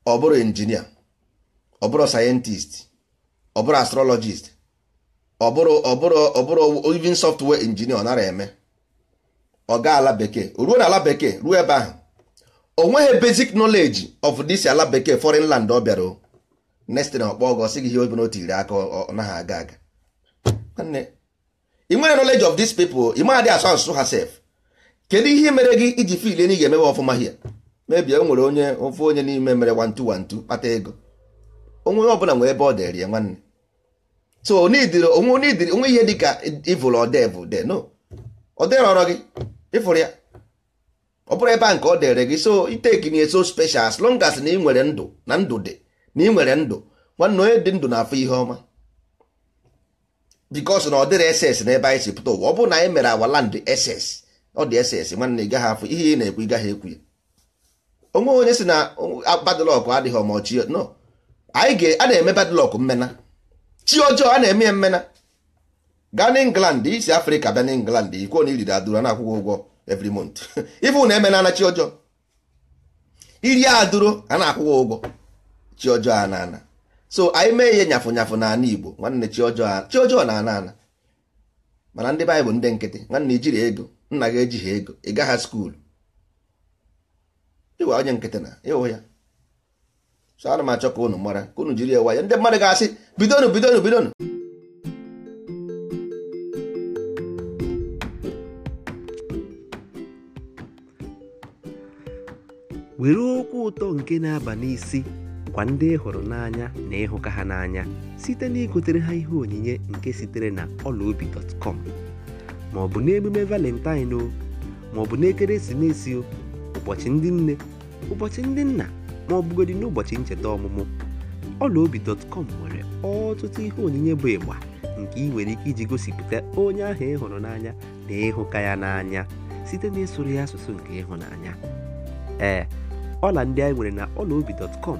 ọ bụrụ injinia ọ bụrụ sayentist ọ bụrụ astrologist ọ bụrụ ọ bụrụ ọ bụrụ even software injinia ọ nara eme ọ gaa ala bekee ruo na ala bekee ruo ebe ahụ o nweghị basic knowledge of this ala bekee foreign land ọ bịara o ọkpọ ọgọ sị gị ihe obi n'otu iri aka ọ naghị aga aga i nwere knowledge of these people ị maghadị asụ asụsụ ha sef kedu ihe mere gị iji fil na ị ga-emewe ọfụma hie mebie o nwere onye ofe onye n'ime mere wantu 2 kpata ego onwe ọbụla nwere ebe ọ dịrị ya nwanne so onwe ihe dị ka ịvụrụ ọdevụ no ọde ọrọ gị ịfụrụ ya ọ bụrụ ebe a nke ọ dịrị gị so iteki na eso special as long as na ị nwere ndụ na ndụ dị na ị nwere ndụ nwanne onye dị ndụ na-afụ ihe ọma because na ọ dịrị ss n'ebe anyị si pụta ụwa ọ bụrụ na anyị mere awa land ss ọ dị ss nwanne ị gaghị afụ ihe ị na-ekwu ị gaghị ekwu ya onwe onye si na badlọkụ adịghị ọmọchi no anyị ga a na-eme badlọkụ mmena chi ọjọọ a na-eme mmena gaa na england isi afrịka bịa na england ikwuo na iriri adụrụ na akwụkwọ ụgwọ every month ifu na emena na chi ọjọọ iri adụrụ a na-akwụkwọ ụgwọ chi ọjọọ a na-ana so anyị mee ihe nyafụ nyafụ n'ala Igbo nwanne chi ọjọọ na ana ana mana ndị be bụ ndị nkịtị nwanne ijiri ego nna gị ejighi ego ị gaghị skuulu ịwa onye nkịtị na ịhụ ya so ana m achọ ka unu mara ka unu jiri ya ya ndị mmadụ ga-asị bidonu bidonu bidonu were okwu ụtọ nke na-aba n'isi bụkwa ndị ị hụrụ n'anya na ịhụka ha n'anya site na igotere ha ihe onyinye nke sitere na ọlaobi.com ma ọ bụ n'emume valentine o ma ọ bụ n'ekeresimesi o ụbọchị ndị nne ụbọchị ndị nna ma ọ bụgodị n'ụbọchị ncheta ọmụmụ ọlaobi.com nwere ọtụtụ ihe onyinye bụ ịgba nke ị nwere ike iji gosipụta onye ahụ ị hụrụ n'anya na ịhụka ya n'anya site na ya asụsụ nke ịhụnanya ee ọla ndị anyị nwere na ọlaobi.com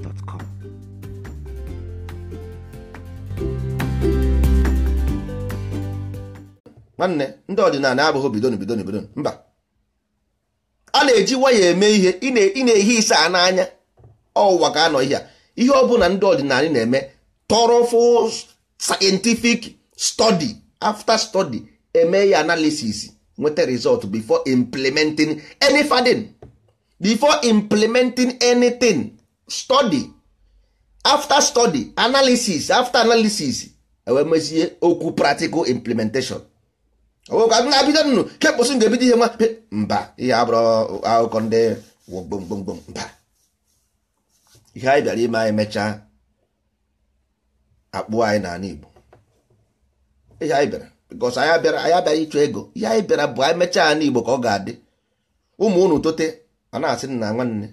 gmail.com. nwanne ndị ọdịnala abụghị bidon bidon mba a na-eji waya eme ihe ị na-ehi ise a n'anya ọwụwa ka anọ ihe a ihe ọ bụla ndị ọdịnala na-eme tọrọfụ scientific study after study eme ya analysis nweta result before implementing any fadin before implementing anything study after study analysis after analysis enwee mezie okwu practical implementation owekwa m na-abido nnụ kekposi ga-ebido ihe nwa mba ihe abụrụ akụkọ ndị gbomgbomgbom mba ihe anyị bịara ime anyị mechaa akpụ anyị n'ala Igbo ihe anyị bịara bikos anyị abịara anyị abịara ịchọ ego ihe anyị bịara bụ anyị mechaa n'ala Igbo ka ọ ga-adị ụmụ unu tote a na-asị nna nwanne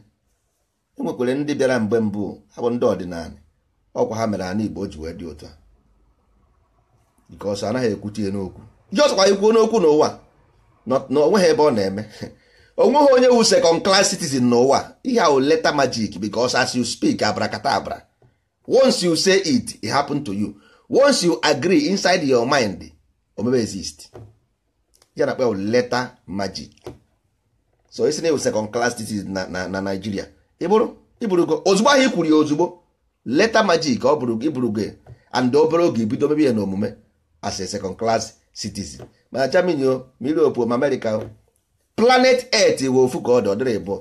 enwekwere ndị bịara mgbe mbụ ha bụ ndị ọdịnala ọkwa ha mere ana Igbo ji wee dị ụtọ a because anaghị ekwuchi n'okwu ji kwa ikwuo n'okwu n'ụwa na onweghị ebe ọ na-eme onweghị onye wu second class citizen n'ụwa ihe ahụ leta magic because as you speak abrakata abra once you say it it happen to you once you agree inside your mind omebe exist ya na akpa leta magic so esi na ewu second class citizen na na Nigeria iburugo ozugbo ahụ ikwuru ya ozugbo leta majik ọ bụrụ iburugo ya and obere oge ibido mebe ya na omume as a second class citizen ma Germany o ma Europe ma America planet earth we ofu ka ọ dị ọdịrị bụ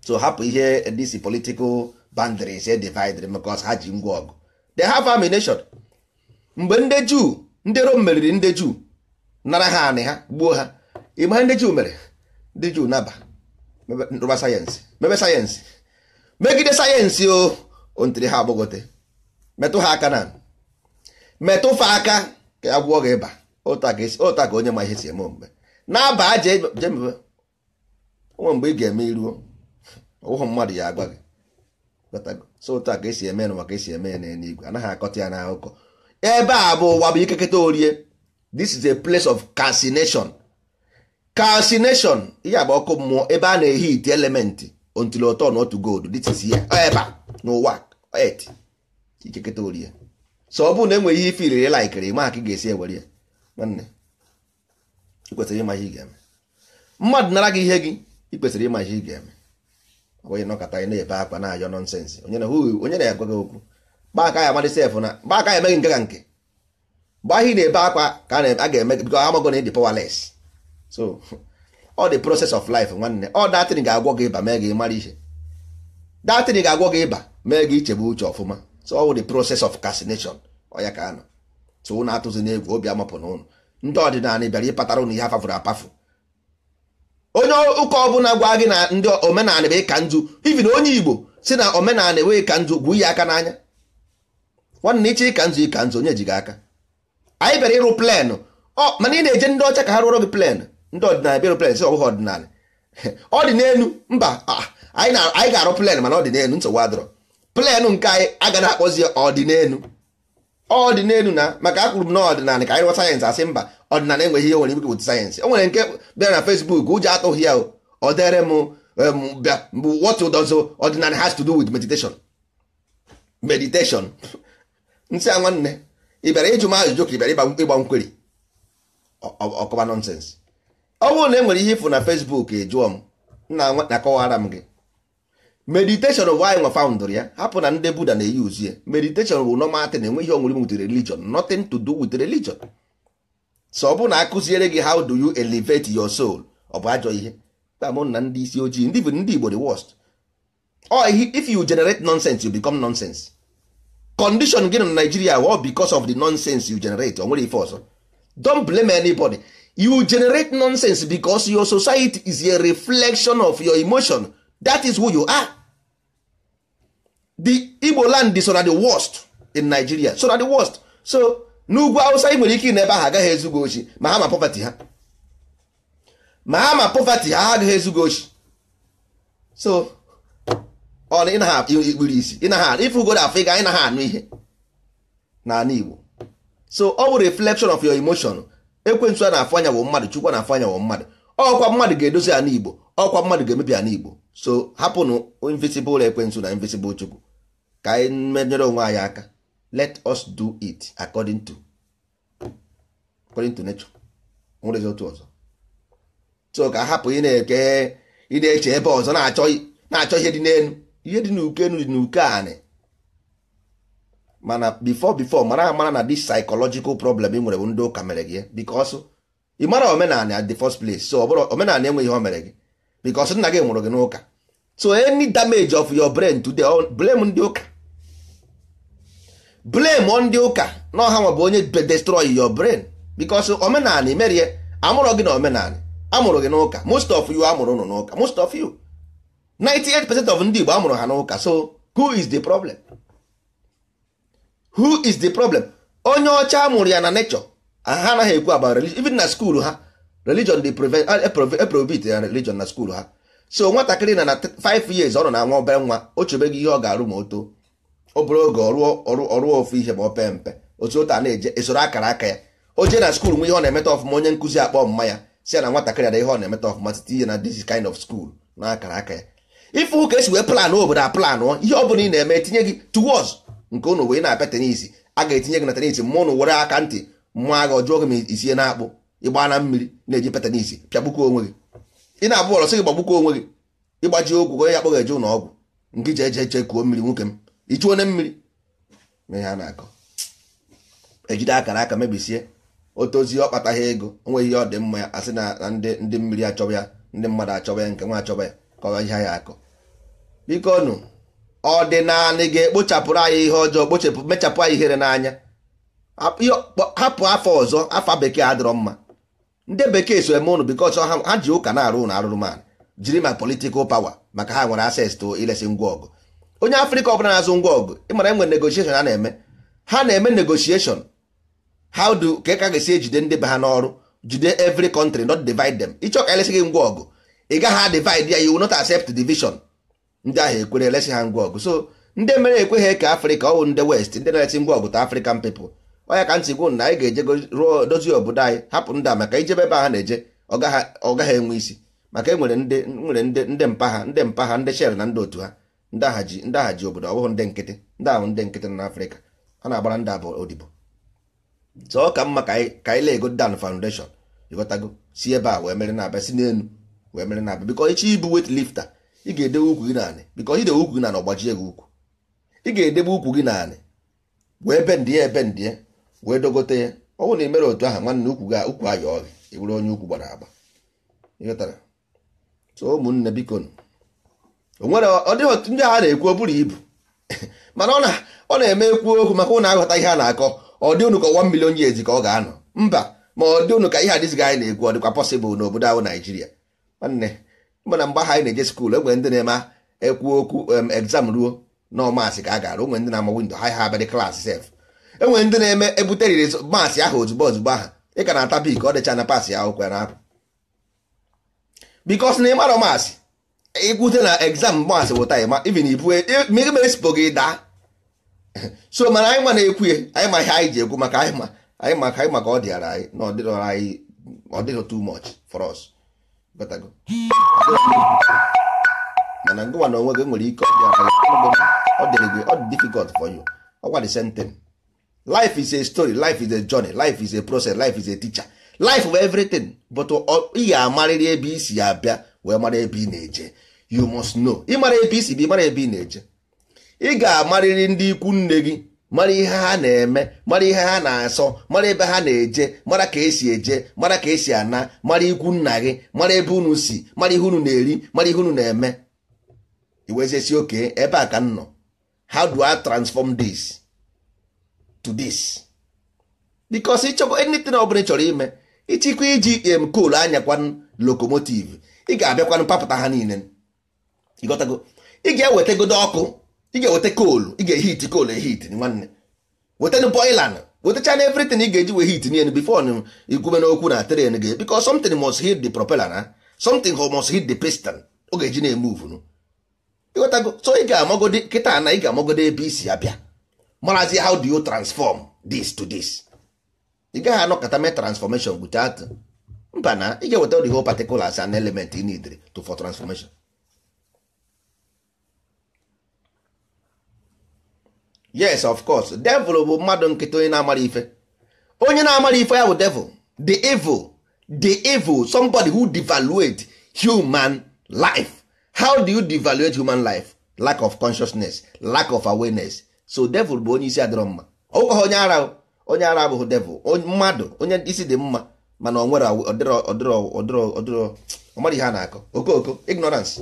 so hapụ ihe dc political boundaries e divided because ha ji ngwa ọgụ The half amination. mgbe ndị juu ndị rom meriri ndị juu nara ha anị ha gbuo ha ịma ndị juu mere ndị juu naba rụba sayensị mebe sayensị megide sayensị o ontiri ha agbagote metụ ha aka na metụ fa aka ka a gwụọ gị ịba ụta ka onye ma ihe si eme omume na-aba aja jemebe onwe mgbe ị ga-eme iruo ụhụ mmadụ ya agwa gị so ụta ka esi eme n'ụwa ka esi eme ya igwe anaghị akọta ya n'akụkọ ebe a bụ ụwa bụ ikeketa orie this is a place of calcination calcination ihe agba ọkụ mmụọ ebe a na-ehi ite elementi until ọtọ na otu gold dịtisi ya ebe a n'ụwa et ikeketa ori ya so ọ bụrụ na enweghị ihe filiri laikiri ma ka ị ga-esi ewere ya nwanne ikwesịrị ịma ihe ị ga-eme mmadụ nara gị ihe gị ị kwesịrị ịma ihe ị ga-eme onye nọkọta anyị na-ebe akwa na-ayọ nọnsensị onye na onye na-agwa gị okwu gbaka ya amadị sef na gbaka ya emeghị nke ka nke mgbe ahụ ị na-ebe akwa ka a ga-eme bikọ amagọ na ị dị powerless so ọ dị process of life nwanne ọ datin ga-agwọ gị ịba mee gị mara ihe datin ga-agwọ gị ịba mee gị ichebe uche ọfụma so ọ wụ the process of castination ọya ka anọ so ụnụ atụzi n'egwu obi amapụ na ụnụ ndị ọdịnala bịara ịpatara ụnụ ihe afafụrụ apafụ onye ụka ọbụla gwa gị na ndị omenala bụ ịka nju ibi na onye igbo si na omenala enweghị ka nzu gwụ ya aka n'anya nwanne iche ịka nzu ịka nzu onye ji gị aka anyị bịara ịrụ plenụ mana ị na-eje ndị ọcha ka ha rụọrọ gị plenụ ndị ọdịnala bịara plen sị ọbụghị ọdịnala ọ dị n'elu mba anyị ga-arụ plen mana ọ dị n'elu nsogbu adọrọ plen nke anyị agaghị akpọzi ọdịnelu ọdịnelu na maka akwụrụ m na ọdịnala ka anyị rụọ sayensị asị mba ọdịnala enweghị ihe nwere ike wụta sayensị o nwere nke bịara na fesbuk ụjọ atụghị ya ọ dere m bịa what does ọdịnala has to do with meditation meditation nsị a nwanne ị bịara ịjụ m ajụjụ ka ị bịara ịgba nkweri ọkọba nọnsensị ọ bụrụ na e nwere ihe na Facebook jụọ m na-akọwara m gị meditation bụ anyị nwa found ya hapụ na ndị Buda na-eyi uzu ya meditation bụ normal thing enwe ihe onwere with religion nothing to do with religion so ọ bụrụ na akụziere gị how do you elevate your soul ọ bụ ajọ ihe tamụ na ndị isi ojii ndị bụ ndị Igbo the worst oh if you generate nonsense you become nonsense condition gị na Nigeria ọ because of the nonsense you generate onwere nwere ife ọzọ don't blame anybody you generate nonsense because your society is a reflection of your emotion that is who you are the igbo land so na the worst in nigeria so na the worst so n'ugwu hausa i nwere ike n'ebe ahụ agaghị ezugo ochi ma ha ma poverty ha ma ha ma poverty ha agaghị ezugo ochi so ọ na ikpuru isi ịfụgodo afọ ịga na ha anụ ihe n'ala igbo so ọ bụ reflection of your emotion ekwensu a na-afụ anya mmadụ chukwu na-afụ anya wụ mmadụ ọkwa mmadụ ga-edozi na igbo ọkwa mmadụ ga-emebi na igbo so hapụnụ invisible ekwensu na invisible chukwu ka anyị menyere onwe anyị aka let us do it according to according to nature nwere otu ọzọ so ka hapụ ị na-eke ị na-eche ebe ọzọ na-achọ ihe dị n'elu ihe dị n'uke enu dị n'uke anị mana before before mara amara na this psychological problem ị nwere bụ ndị ụka mere gị eh? because ị mara omenala at the first place so ọbụrụ omenala enweghị ihe o mere gị because nna gị nwụrụ gị n'ụka so any damage of your brain today blame ndị ụka blame ndị ụka na ọha nwa bụ onye destroy your brain because omenala imerie amụrụ gị na omenala amụrụ gị n'ụka most of you amụrụ ụnụ n'ụka most of you 98 percent of ndị Igbo amụrụ ha n'ụka so who is the problem? who is the problem onye ọcha amụrụ ya na nature ha anaghị ekwu about religion even na school ha religion dey eprobit ya religion na school ha so nwatakịrị na na 5 years ọ nọ na nwa obere nwa o chebeghị ihe ọ ga-arụ ma o too ọ bụrụ oge ọrụ ofu ihe ma ope pee mpe otu ụta na-eje esoro akara aka ya o jee na skuul nwe ihe ọ na-emeta ọfụma onye nkụzi akpọ mma ya si ya na nwatakịrị ada ihe ọ na-emeta ọfụma site ihe na this kind of school na akara aka ya ife ụka esi wee plan obodo a ihe ọ bụla ị na-eme tinye gị towards nke ụnụ wee na-apịa tenisi a ga-etinye gị na tenisi mma ụnụ were aka ntị mmụọ agha ọjụọ gị ma isie na akpụ ịgba na mmiri na-eji pịa tenisi onwe gị ị na-abụ ọrọ sị gị gbagbuko onwe gị ịgbaji okwu gonye onye ya kpọgh eje ụlọ ọgwụ nke ji eje eche kuo mmiri nwoke m ichuo onye mmiri ma ihe na-akọ ejide akara aka mebisie otozi ọ kpataghị ego onwe ihe ọ dị mma ya asị na ndị mmiri achọba ya ndị mmadụ achọba ya nke nwa achọba ya ka ọ ihe ya akọ biko nụ ọdịnala ga-ekpochapụrụ anyị ihe ọjọọ kpochapụ mechapụ anyị ihere n'anya hapụ afọ ọzọ afọ bekee adịrọ mma ndị bekee so eme ụnụ bikos ha ji ụka na-arụ ụnụ arụrụ man jiri ma politikal pawa maka ha nwere ases to ilesi ngwa ọgụ onye afrịka ọbụla na-azụ ngwa ọgụ ịmara nwere negotieshon ha na-eme ha na-eme negotieshon how do ka ka ga-esi ejide ndị be ha n'ọrụ jide every country not divide them ịchọ ka elesi gị ngwa ọgụ ị gaghị adivid ya you not accept division ndị ahụ ekwere elesi ha ngwa ọgụ so ndị mere ekweghị ka afrịka ọwụ ndị west ndị na-esi ngwa ọgụ ta afrịkan pepụl ọnya ka ntị gwụ na anyị ga eje ruo dozie obodo anyị hapụ ndị a maka ijebe ebe ha na-eje ọ gaghị enwe isi maka enwere ndị nwere ndị ndị mpa ha ndị mpa ha ndị shel na ndị otu ha ndị agha ji ndị agha ji obodo ọbụghị ndị nkịtị ndị ahụ ndị nkịtị nọ n'afrịka a na-agbara ndị abụọ odibo so ka mma ka anyị ego dan foundation ịghọtago si ebe a wee mere na abịa si wee mere na abịa ibu wet lifta ị ga edebe ukwu gị naanị bikọ idewe ukwu gị naanị ọgbajie gị ukwu ị ga-edebe ukwu gị naanị wee bendị ya ebendị ya wee dogote ya ọ bụrụ na ị mere otu ahụ nwanne ukwu gị ukwu ayọ gị ị onye ukwu gbara agba ịghọtara so ụmụnne biko onwere ọ dịghị otu ndị a na-ekwu o ibu mana ọ na-eme ekwu okwu maka ụnụ aghọta ihe a na-akọ ọ dị unu ka ọwa mmiri onye ka ọ ga-anọ mba ma ọ dị unu ka ihe adịzighị anyị na-ekwu ọ dịkwa pọsịbụl n'obodo ahụ naijiria nwanne mana mgbe ha anyị na-eje skuul enwere ndị na-eme ekwu okwu exam ruo na ọmasị ka a gara nwere ndị na-ama windo ha ha abịadị klaasị sef enwere ndị na-eme ebuteriri maasị ahụ ozugbo ozugbo aha ị ka na-ata bik ọ dịcha na paasị ya akwụkwọ ya na-apụ bikos na ịmara maasị ịkwute na exam maasị bụ taịma ivin ibu merespo gị daa so mana anyị ma na-ekwu ya anyị ma ihe anyị ji ekwu maka anyị ma anyị maka ọ dịara anyị na ọ dịrọ tu mọch for mana ngụwa na onwe gị nwere ike ọ dịrị gị ọ dị difficult fọ you ọkwa the same thing life is a story life is a journey life is a process life is a teacher life bụ everything but ị ga-amarịrị ebe i si abịa wee mara ebe ị na-eje you must know ịmara ebe i si bụ ịmara ebe ị na-eje ị ga-amarịrị ndị ikwu nne gị mara ihe ha na-eme mara ihe ha na-asọ mara ebe ha na-eje mara ka esi eje mara ka esi ana mara ikwu nna gị mara ebe unu si mara ihe unu na-eri mara ihe unu na-eme iwezesi oke ebe a ka m nọ how do I transform this to this because ịchọkwa anything ọ bụla chọrọ ime ịchịkwa iji em um, coal anyakwan lokomotiv ị ga-abịakwanụ papụta ha niile ịgọtago ị ga-ewetagodo ọkụ ị ga-eweta koolu ị ga-ehit koolu ehit nwanne wetanụ boilan wetachana everything ị ga-eji wee hit nien before igwube n'okwu na tren gị biko somtin must hit the propeller na something must hit the piston ọ ga-eji na-emove nụ so ị ga-amagode kịta na ị ga-amagode ebe isi abịa marazi how do you transform this to this ị gaghị anọkọta mee transformation atụ. mba na ị ga-eweta the whole particulars and element ị needre to for transformation yes of course devil bụ mmadụ nkịtị onye na-amara ife onye na-amara ife ya bụ devil the evil the evil somebody who devaluate human life how do you devaluate human life lack of consciousness lack of awareness so devil bụ onye isi adịrọ mma ọkwa onye ara onye ara abụghị devil mmadụ onye isi dị mma mana ọ nwere ọdịrọ ọmara ihe a na-akọ okoko ignorance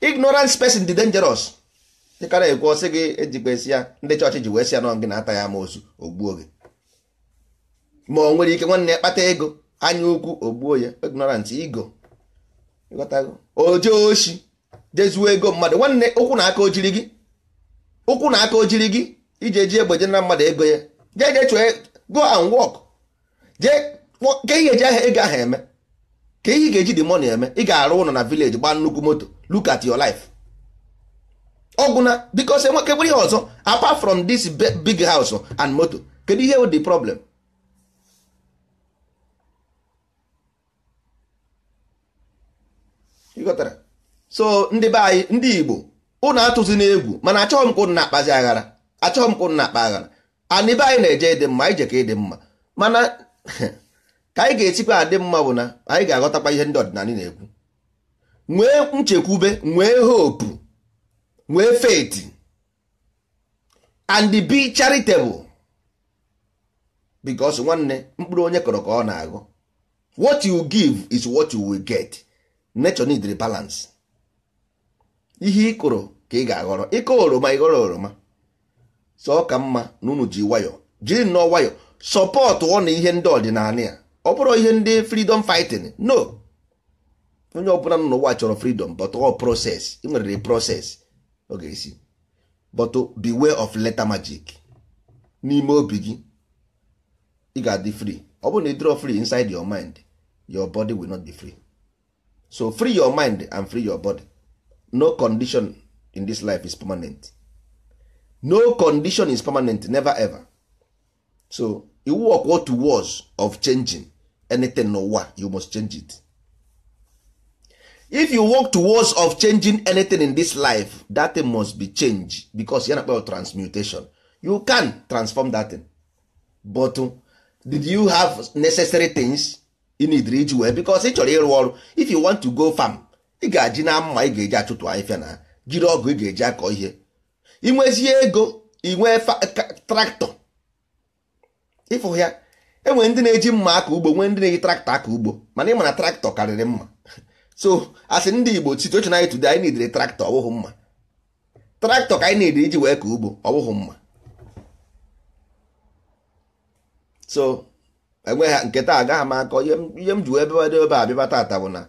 ignorance person dị dangerous dịka na-ekwu ọsị gị ejikwesị ya ndị chọọchị ji wee si ya nọ gị na-ata ya ozu ogbuo gị ma o nwere ike nwanne ya kpata ego anya ukwu ogbuo ya ignorant ego oje oshi jezuo ego mmadụ nwanne ụkwụ na aka ojiri gị ụkwụ na aka ojiri gị iji eji egbe na mmadụ ego ya jee je chụọ e, go and walk jee ka ihe eji ahịa ego ahụ eme ka ihe ị ga-eji dị eme ị ga-arụ ụlọ na village gbaa nnukwu moto look at your life ọgwụ na biko sị nwoke bụrụ ihe ọzọ apart from this big house and moto kedu ihe dị problem ịghọtara so ndị be anyị ndị Igbo ụnụ atụzi n'egwu mana achọghị m ka ụnụ na-akpazi aghara achọghị m ka ụnụ na-akpa aghara anị be anyị na-eje ịdị mma anyị je ka ịdị mma mana ka anyị ga-esikwa adị mma bụ na anyị ga-aghọtakwa ihe ndị ọdịnala na-ekwu nwee nchekwube nwee hopu nwee faith and be charitable because nwanne mkpụrụ onye kọrọ ka ọ na-agụ what you give is what you will get nature need the balance ihe ịkụrụ ka ị ga-aghọrọ ịkọ oroma ịghọrọ oroma sọ ka mma na unu ji nwayọ jiri nnọọ nwayọ sọpọt ọ na ihe ndị ọdịnala ya ọ bụrụ ihe ndị freedom fighting no onye ọbụla nọ n'ụwa chọrọ freedom but all process ị nwere process. Ok, ga-esi but beware of letter magic n'ime obi gị ị ga-adị free ọ bụrụ na ị draw free inside your mind your body will not be free so free your mind and free your body no condition in this life is permanent no condition is permanent never ever so you work what was of changing anything n'ụwa you must change it if you work towards of changing anything in this life that thing must be changed because ya na transmutation you can transform that thing but uh, did you have necessary things you need reach well? because ị chọrọ ịrụ ọrụ if you want to go farm ị ga-aji na mma ị ga-eji achụtụ ahịfịa na jiri ọgụ ị ga-eji akọ ihe inwezie ego inwee traktọ ịfụ ya enwere ndị na-eji mma aka ugbo nwee ndị na-eji traktọ aka ugbo mana ị na traktọ karịrị mma so asị ndị igbo situation anyị today anyị nidere traktọ ọbụghị mma traktọ ka anyị nidere iji wee ka ugbo ọbụghị mma so enweghị ha nke taa agaghị m akọ ihe m ji wee bebado ebe a bịba taata bụ na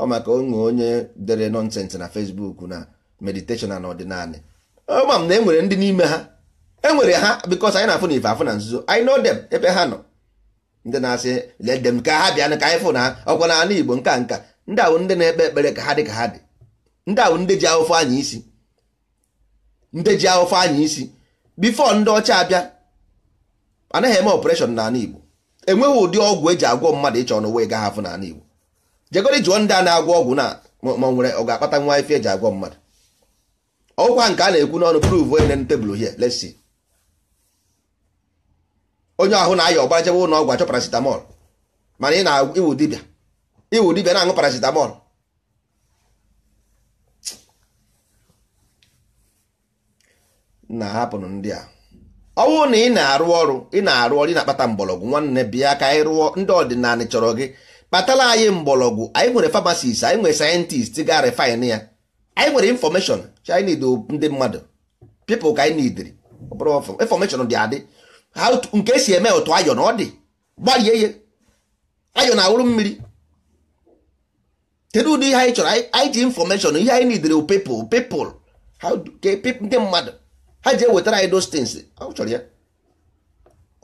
ọ maka onwe onye dere nọnsensị na fesbuk na meditation na ọdịnala ama m na enwere ndị n'ime ha enwere ha because anyị na-afụ na ife afụ na nzuzo anyị know them ebe ha nọ ndị na-asị let them ka ha bịa ka anyị fụ na ọkwa na ala Igbo nka nka ndị ahụ ndị na-ekpe ekpere ka ha dị ka ha dị ndị ahụ ndị ji ahụfe anya isi ndị ji ahụfe anya isi bifo ndị ọcha abịa anaghị eme ọpụreshọn n'ala Igbo enweghị ụdị ọgwụ eji agwọ mmadụ ịchọ n'ụwa ị gaghị n'ala Igbo jegori jụọ ndị a na-agwọ ọgwụ na ma nwere ọ ga-akpata nwa ife eji agwọ mmadụ ọgwụkwa nke a na-ekwu n'ọnụ prove onye na tebụl hie lesi onye ahụ na-aya ọgbara jebe ụlọ ọgwụ achọ paracetamol mana ị na dibịa iwu dibia na-aṅụ paracetamol na-ahapụnụ ndị a ọ bụrụ na ị na-arụ ọrụ ị na-arụ ọrụ ị na-akpata mgbọrọgwụ nwanne bịa ka anyị rụọ ndị ọdịnala chọrọ gị kpatara anyị mgbọrọgwụ anyị nwere famasis anyị nwere sayentist ga refin ya anyị nwere infọmeshọn chind ndị mmadụ pipụl ka anyị nidiri infọmeshọn dị adị nke esi eme otu ayọ na ọ dị ihe ayọ na-awụrụ mmiri kedu ụdị ihe anyị chọrọ anyị ji infọmeshọn ihe anyị nidere pepụl pepụl ndị mmadụ ha ji ewetara anyị those things ọ chọrọ ya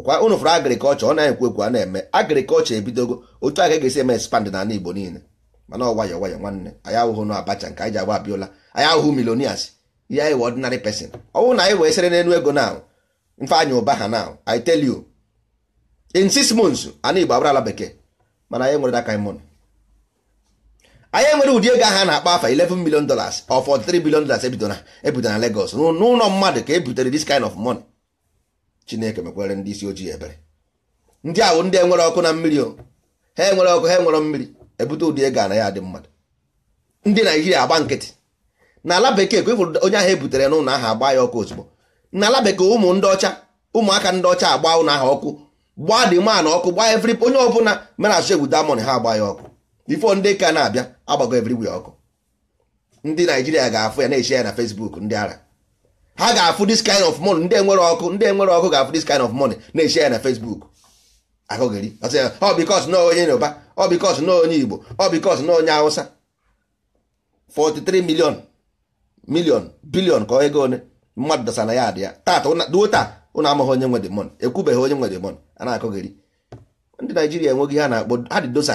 kwa unu fụrụ agrikọlchọ ọ na-ekwu ekwu a na-eme agrikọlchọ ebidogo otu a e ga-esi eme expand n'ala Igbo niile mana ọ nwayọ nwayọ nwanne anyị ahụhụ na abacha nke anyị ji agba Abiola anyị ahụhụ milonias ihe anyị wee ordinary person ọ bụrụ na anyị wee sere n'elu ego na mfe anya ụba ha na I tell you in six months ana Igbo abarala bekee mana anyị nwere aka anyị mụnụ anyị nwere ụdị ego aha na-akpa afa 11 million dollars of 43 billion dollars ebido na Lagos n'ụlọ mmadụ ka e butere this kind of money Chineke mekwere ndị isi ojii ebere ndị ahụ ndị enwere ọkụ na mmiri o ha enwere ọkụ ha enwere mmiri ebute ụdị ego ana ya dị mmadụ ndị Naijiria agba nkịtị n'ala bekee ka onye ahụ ebutere n'ụlọ aha agba ya ọkụ ozugbo n'ala bekee ụmụ ndị ọcha ụmụaka ndị ọcha agba ụlọ ahụ ọkụ gbaa dị man ọkụ gbaa every onye ọbụla mere asụ egwu damon ha agba ya ọkụ bifo ndị ka na-abịa agbago everywhere ọkụ ndị naijiria ga-afụ ya na-eche ya na facebook ndị ara ha ga-afụ this kind of money ndị enwere ọkụ ndị enwere ọkụ ga-afụ this kind of money na-eche ya na facebook akụghịrị ọ bikos na onye yoruba ọ bikos na onye igbo ọ bikos na onye hausa 43 million million billion ka ego one mmadụ dọsa na ya adị ya tata duo taa ụnụ amaghị onye nwe dị mon ekwubeghị onye nwe dị mon a na-akụghịrị ndị naijiria enweghị ha na-akpọ ha dị dosa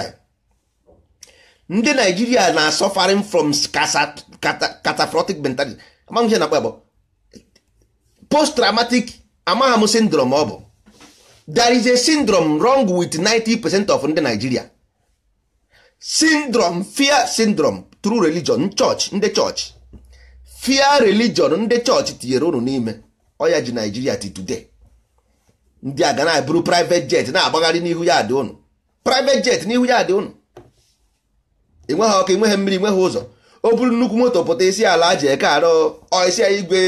ndị naijiria na suffering from catastrophic mentality amaghị ihe na akpa post traumatic amagham syndrome ọ bụ there is a syndrome wrong with 90% of ndị naijiria syndrome fear syndrome through religion church ndị church fear religion ndị church tinyere unu n'ime ọya ji naijiria ti today ndị a ga na abụrụ private jet na-agbagharị n'ihu ya dị unu private jet n'ihu ya dị unu ịnweghị ọkụ ịnweghị mmiri ịnweghị ụzọ o buru nnukwu moto pụta isi ala ji eke arụ isi ya igwe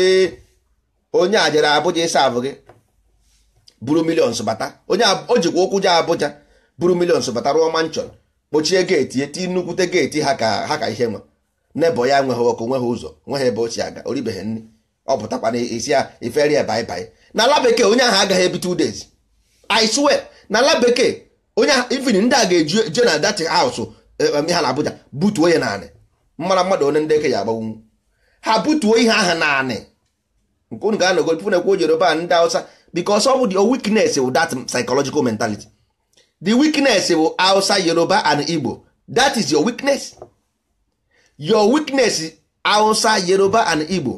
onye a jere abụja ịsa abụ gị buru milions bata onye o jikwa ụkwụ je abụja buru milions bata rụọ manchọn kpochie geeti eti nnukwute geeti ha ka ha ka ihe nwe n'ebe ya nweghị ọkụ nweghị ụzọ nweghị ebe o si aga oribeghị nri ọ pụtakwana isi ya iferi ya baibai na ala bekee onye ahụ agaghị ebi two days I swear na ala bekee onye ifin ndị a ga-eje na dati house Eh, eh, ha na-abụja butuo ya naanị mara mmadụ onye ndị eke ya agbanwu ha butuo ihe aha naanị nke unu ga-anọgo tupu na-ekwu Yoruba ndị Awụsa because ọ bụ the weakness of that psychological mentality the weakness of Awụsa Yoruba and Igbo that is your weakness your weakness Awụsa Yoruba and Igbo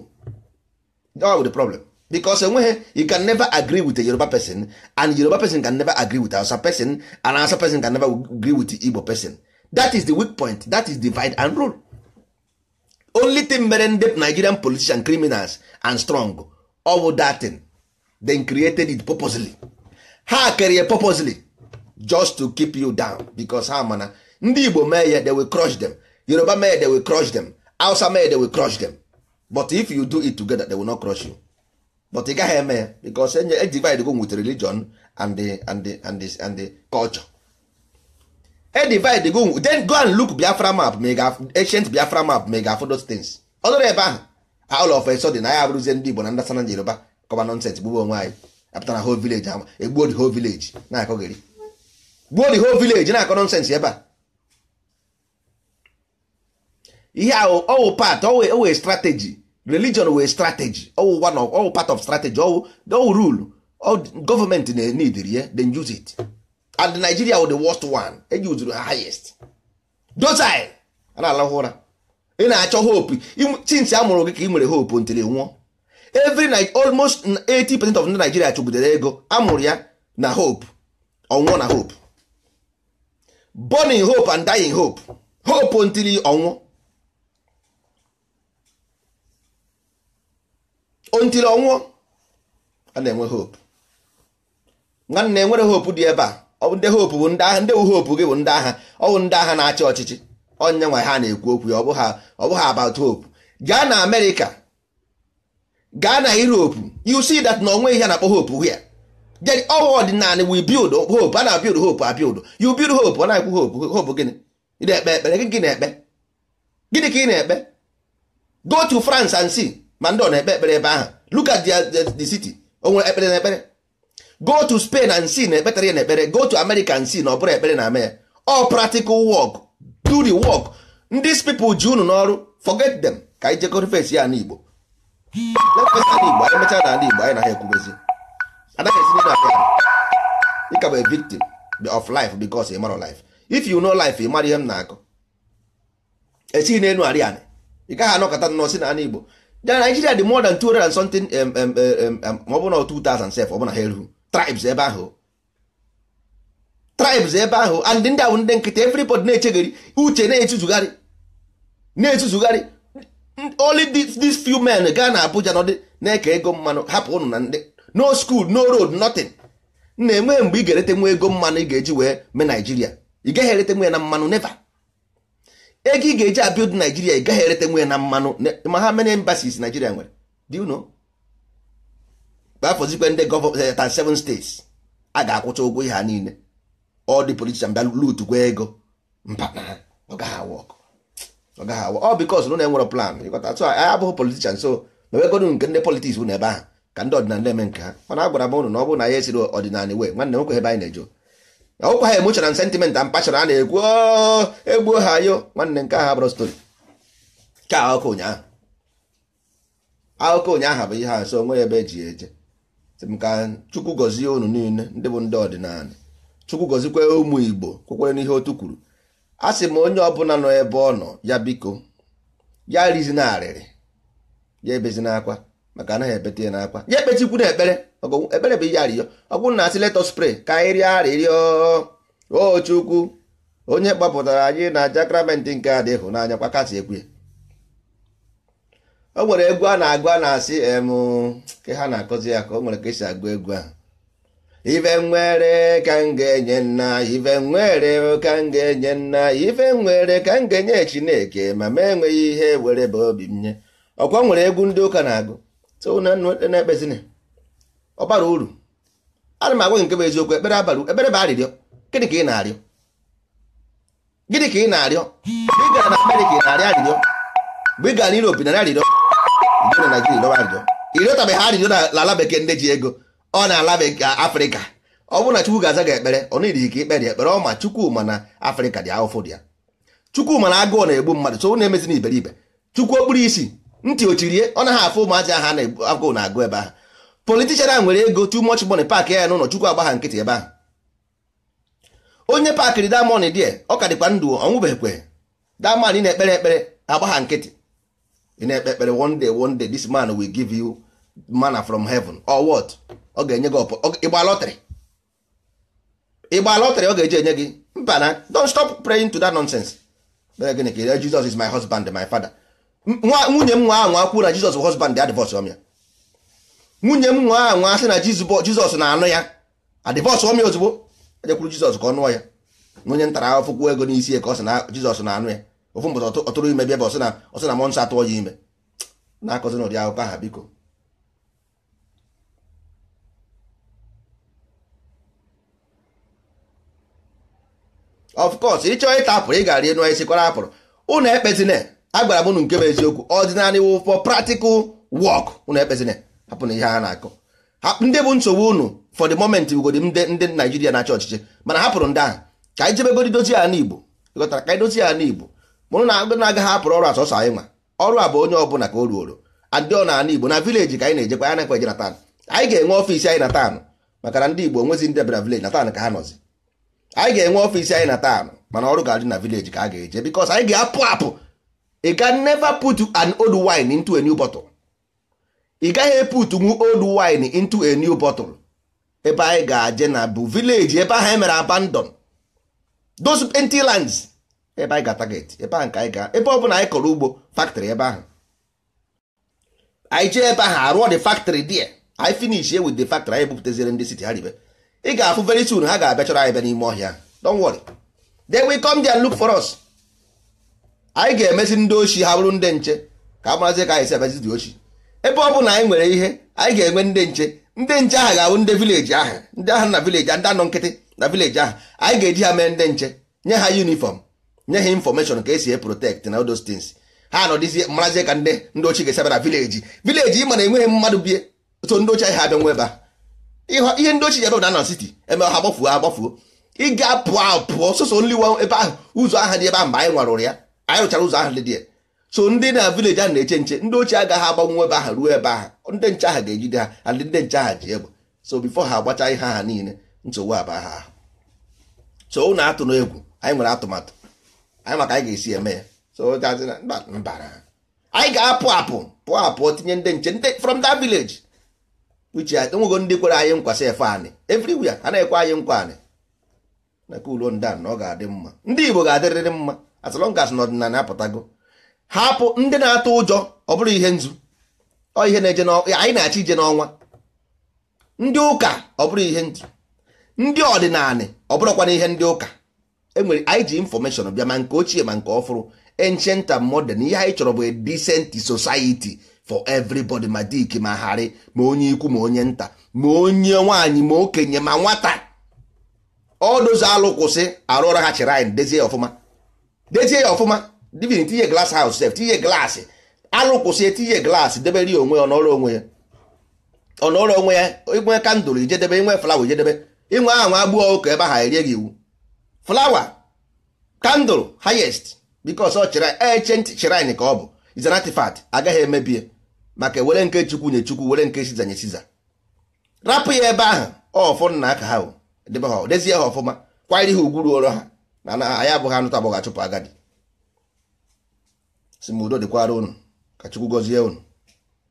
that will the problem because enweghị you can never agree with a Yoruba person and Yoruba person can never agree with Awụsa person and Hausa person can never agree with Igbo person that is the weak point that is divide and rule only thing mere ndị nigerian politician criminals and strong ọ bụ that thing then created it purposely ha kere purposely just to keep you down because ha mana ndị igbo mee ya they will crush them yoruba mee they will crush them hausa mee they will crush them but if you do it together they will not crush you but ị gaghị eme ya because e, e divide go with religion and the, and the, and the, and the culture e divide go then go and look biafra map ma ancient biafra map ma ị ga-afụ those things ọ ebe ahụ all of a na ya abụrụzie ndị igbo na ndasana yoruba kọba nonsense gbugbu onwe anyị Apụtara na whole village ama egbuo the whole village na-akọgịrị gbuo the whole village na-akọ nonsense ebe a ihe ahụ ọwụ part ọwụ oh, oh, oh, strategy religion wee strategy ọwụ one ọwụ part of strategy ọwụ ọwụ rule gọọmenti na-enidiri ya then use it and Nigeria were the worst one ejuzuru ha highest dozai ana na-alahụ ụra ị na-achọ hope since a mụrụ gị ka ị nwere hope ntiri nwụọ every almost 80% of ndị Nigeria chụbudere ego amụrụ ya na hope ọnwụ na hope born in hope and die in hope hope ntiri ọnwụ ntiri ọnwụ a na-enwe hope nwanne enwere hope dị ebe a ndị hopu bụ ndị agha ndị wụ hopu gị bụ ndị agha ọ bụ ndị agha na-achị ọchịchị onye nwe ha na-ekwu okwu ya ọ bụghị about hope gaa na amerịka gaa na europe yu see that na onwe ihe na-akpọ hope hụ ya ọwụ ọdịnala we build hope a na build hope a yu you build hope ọ na-ekwu hope hope gịnị ị na-ekpe ekpere gị na-ekpe gịnị ka ị na-ekpe go to france and see ma ndị ọ na-ekpe ekpere ebe ahụ look at the city o nwere ekpere na ekpere go to Spain and see na ekpetara ya na ekpere go to America and see na ọ bụrụ ekpere na mee all practical work do the work these pipo ji unu n'ọrụ forget them ka anyị jekọrọ face ya n'Igbo Igbo anyị mechaa Igbo anyị na ha ekwubezi anaghị esi n'ime victim of life ị mara life if you know life ị mara ihe m na esighị n'elu arị anị ị gaghị Igbo Nigeria dị more than something ma ọ bụ na 2007 ọ ha eruhu tribes ebe ahụ tribes ebe ahụ and ndị ahụ ndị nkịta everybody na-echegharị uche na-etuzugharị na-etuzugharị only these few men gaa na Abuja nọdụ na-eke ego mmanụ hapụ ụnụ na ndị no school no road nothing na-enwe mgbe ị ga-erete nwa ego mmanụ ị ga-eji wee mee Naijiria ị gaghị erete nwa ya na mmanụ neva. ego ị ga-eji abiod Naijiria ị gaghị erete nwa ya na mmanụ ma ha many embassies Naijiria nwere you know kpafọzikwe ndị gọvanọ tan seven states a ga-akwụcha ụgwọ ihe ha niile ọ dị politishan bịa gwa ego mba ọ gaghị awọ ọ gaghị awọ ọ bikos na enwere plan ịkọta abụghị politishan so mewegonu nke ndị politiks bụ n'ebe ahụ ka ndị ọdịnala eme nke ha mana agwara m ụnụ na ọ bụrụ na ya esiri ọdịnala wee nwanne nwoke ebe anyị na-ejo ọkwa ha emoshona na sentiment a mpachara a na-ekwu oh, egbuo ha yo nwanne nke ahụ abụrụ stori ka akụkọ ụnyaahụ akụkọ ụnyaahụ bụ ihe a so onwe ebe eji eje ka chukwu gọzie unu niile ndị bụ ndị ọdịnala chukwu gọzikwe ụmụ igbo kwekwere n'ihe otu kwuru a sị m onye ọbụla nọ ebe ọ nọ ya biko ya na arịrị ya ebezina akwa maka anaghị ebete ya n'akwa ya ekpechikwu na ekpere ekpere bụ ihe arịrịọ ọ na asị letọ spray ka anyị rịọ arịrịọ o chukwu onye gbapụtara anyị na jakramentị nke adịghị n'anya kwa kasị ekwe o nwere egwu a na-agụ a na-asị ke ha na-akọzi ya ka o nwere ka esi agụ egwu ahụ ife nwere ka m ga-enye nna ife nwere ka m ga-enye nna ife nwere ka m ga-enye chineke ma m enweghị ihe were bụ obi m nye ọkwa nwere egwu ndị ụka na-agụ na-ekpezina ọ bara uru ana m agwa gị nke bụ eziokwu ekpere abara ekpere bụ arịrịọ gịnị ka ị na-arịọ gịnị ka ị na-arịọ ị gara na Amerịka ị na-arịọ arịrịọ mgbe ị gara n'Europe narị arịrịọ mgbe na Naijiria ịnọba njọ ịrịọtabeghị arịrịọ n'ala bekee ndị ji ego ọ na-ala Afrịka ọ bụrụ na Chukwu ga-aza gị ekpere ọ na-eri ike ekpere ọ ma Chukwuma na Afrịka dị ahụfụ dị ya Chukwuma na agụụ na-egbu mmadụ so na-emezi na iberibe Chukwu okpuru isi ntị ochirie ọ naghị afụ ụmụazị ahụ na-agụ na-agụ ebe ahụ politishan a nwere ego too much money paakị ya n'ụlọ Chukwu agbagha nkịtị ebe ahụ onye paakịrị damond die ọ ka dịkwa ndụ ọnwụbeghịkwe damond na-ekpere ekpere agbagha nkịtị ị na-ekpe ekpere one day one day this man will give you manna from heaven or what ọ ga-enye gị ọpụ ịgba lọtrị ịgba lọtrị ọ ga-eji enye gị mba na don't stop praying to that nonsense mere gịnị ka Jesus is my husband my father nwunye m nwa ahụ akwụ na Jesus husband adivọs divorce ya nwunye m nwa ahụ asị na Jizọs na-anụ ya adivọs divorce ya ozugbo ejekwuru Jizọs ka ọ nụọ ya nwunye ntara ahụfụkwuo ego n'isi ka ọ sị na Jizọs na-anụ ya ofu mbọta ọtụrụ ime bịa bụ ọsị na ọsị na mọ nsọ atụọ ya ime na-akọzi n'ụdị akụkọ aha biko of course ịchọọ ịta apụrụ ị gara enu isi kwara apụrụ ụnụ ekpezina agwara m ụnụ nke bụ eziokwu ọdịnarị wụ for practical work ụnụ ekpezina hapụ na ihe ha na-akọ ndị bụ nsogbu ụnụ for the moment ugodi ndị Naijiria na-achị ọchịchị mana hapụrụ ndị ahụ ka anyị jebegodi dozie ala Igbo ịghọtara ka anyị dozie ala Igbo mụrụ na agụ na ọrụ asọsọ anyị nwa ọrụ a bụ onye ọbụla ka o ruoro adị ọ n'ala igbo na vileji ka anyị na-ejekwa anyị na-ekweje na tan anyị ga-enwe ọfiisi anyị na taanụ maka na ndị igbo nwezi ndị bịara vileji na taanụ ka ha nọzi anyị ga-enwe ọfiisi anyị na taanụ mana ọrụ ga-adị na vileji ka a ga-eje bikos anyị ga-apụ apụ ị ga put an old wine into a new bottle ị gaghị eputu nwu old wine into a new bottle ebe anyị ga-aje na bụ vileji ebe ahụ anyị e mere abandon those empty lands ebe anyị ga target ebe ahụ ka anyị ga ebe ọ bụla anyị kọrọ ugbo factory ebe ahụ anyị jee ebe ahụ arụọ the factory there anyị finish with the factory anyị bupụtazire ndị siti ha ribe ị ga-afụ very soon ha ga-abịa chọrọ anyị bịa n'ime ọhịa don't worry they will come there and look for us anyị ga-emezi ndị ochi ha bụrụ ndị nche ka a marazie ka anyị si abịazi dị ochi ebe ọ bụla anyị nwere ihe anyị ga-enwe ndị nche ndị nche ahụ ga-abụ ndị vileji ahụ ndị ahụ na vileji ndị anọ nkịtị na vileji ahụ anyị ga-eji ha mee ndị nche nye ha yunifọm nye ha infọmeshọn ka esi e protect na those things ha dịzie marazie ka ndị ndị ochie ga-esi abịara vileji vileji ị mana enweghị mmadụ bie so ndị ochie ha abịa nwe ebe a ihe ndị ochie ebe na siti eme ha gbafuo ha gbafuo ị ga-apụ sọsọ ebe ahụ ụzọ aha dị ebe ahụ mgbe anyị nwarụrụ ya anyị rụchara ụzọ ahụ dị ya so ndị na vileji ahụ na-eche nche ndị ochie agaghị agbanwe ebe ahụ ruo ebe ahụ ndị nche ahụ ga-ejide ha adị ndị nche ahụ ji egbe so bifo ha agbacha ihe aha niile nsogbu aba ha so ụnụ atụ egwu anyị nwere atụmatụ anyị maka anyị ga-esi eme ya so mbara anyị ga-apụ apụ pụọ apụ tinye ndị nche ndị from that village uche enwego uh, ndị kwere anyị nkwa efe anị everywhere a na-ekwe anyị nkwa anị naka ulo ndan na ọ ga-adị mma ndị Igbo ga-adịrịrị mma as long as n'ọdịnala apụtago hapụ ndị na-atụ ụjọ ọ bụrụ ihe nzu ọ ihe na-eje anyị na achị ije n'ọnwa ndị ụka ọ bụrụ ihe nzu ndị ọdịnala ọ bụrụkwa na ihe ndị ụka enwere anyị ji infọmeshọn bịa ma nke ochie ma nke ọfụrụ ancient and modern ihe anyị chọrọ bụ a decent society for everybody ma dik ma harị ma onye ikwu ma onye nta ma onye nwaanyị ma okenye ma nwata ọdozi alụkwụsị kwụsị ha chịrị anyị dezie ya ọfụma dezie ya ọfụma divin tinye glass haụs sef tinye glass alụkwụsị kwụsị etinye glass debere ya onwe ya ọnọrọ onwe ya ọnọrọ onwe ya inwe kandụl ijedebe inwe flawa ijedebe inwe aha nwa agbụghọ ụka ebe ha erie gị iwu flawa kandụl highest because ọ chere ancient shrine ka ọ bụ is agaghị emebie maka were nke chukwu nye chukwu were nke siza nye siza rapụ ya ebe ahụ ọfụ nna aka ha debe ha dezie ha ọfụma kwanyere ha ugwu ruoro ha na anyị abụghị anụta agbọghọ agadi si m udo dịkwara unu ka chukwu gọzie unu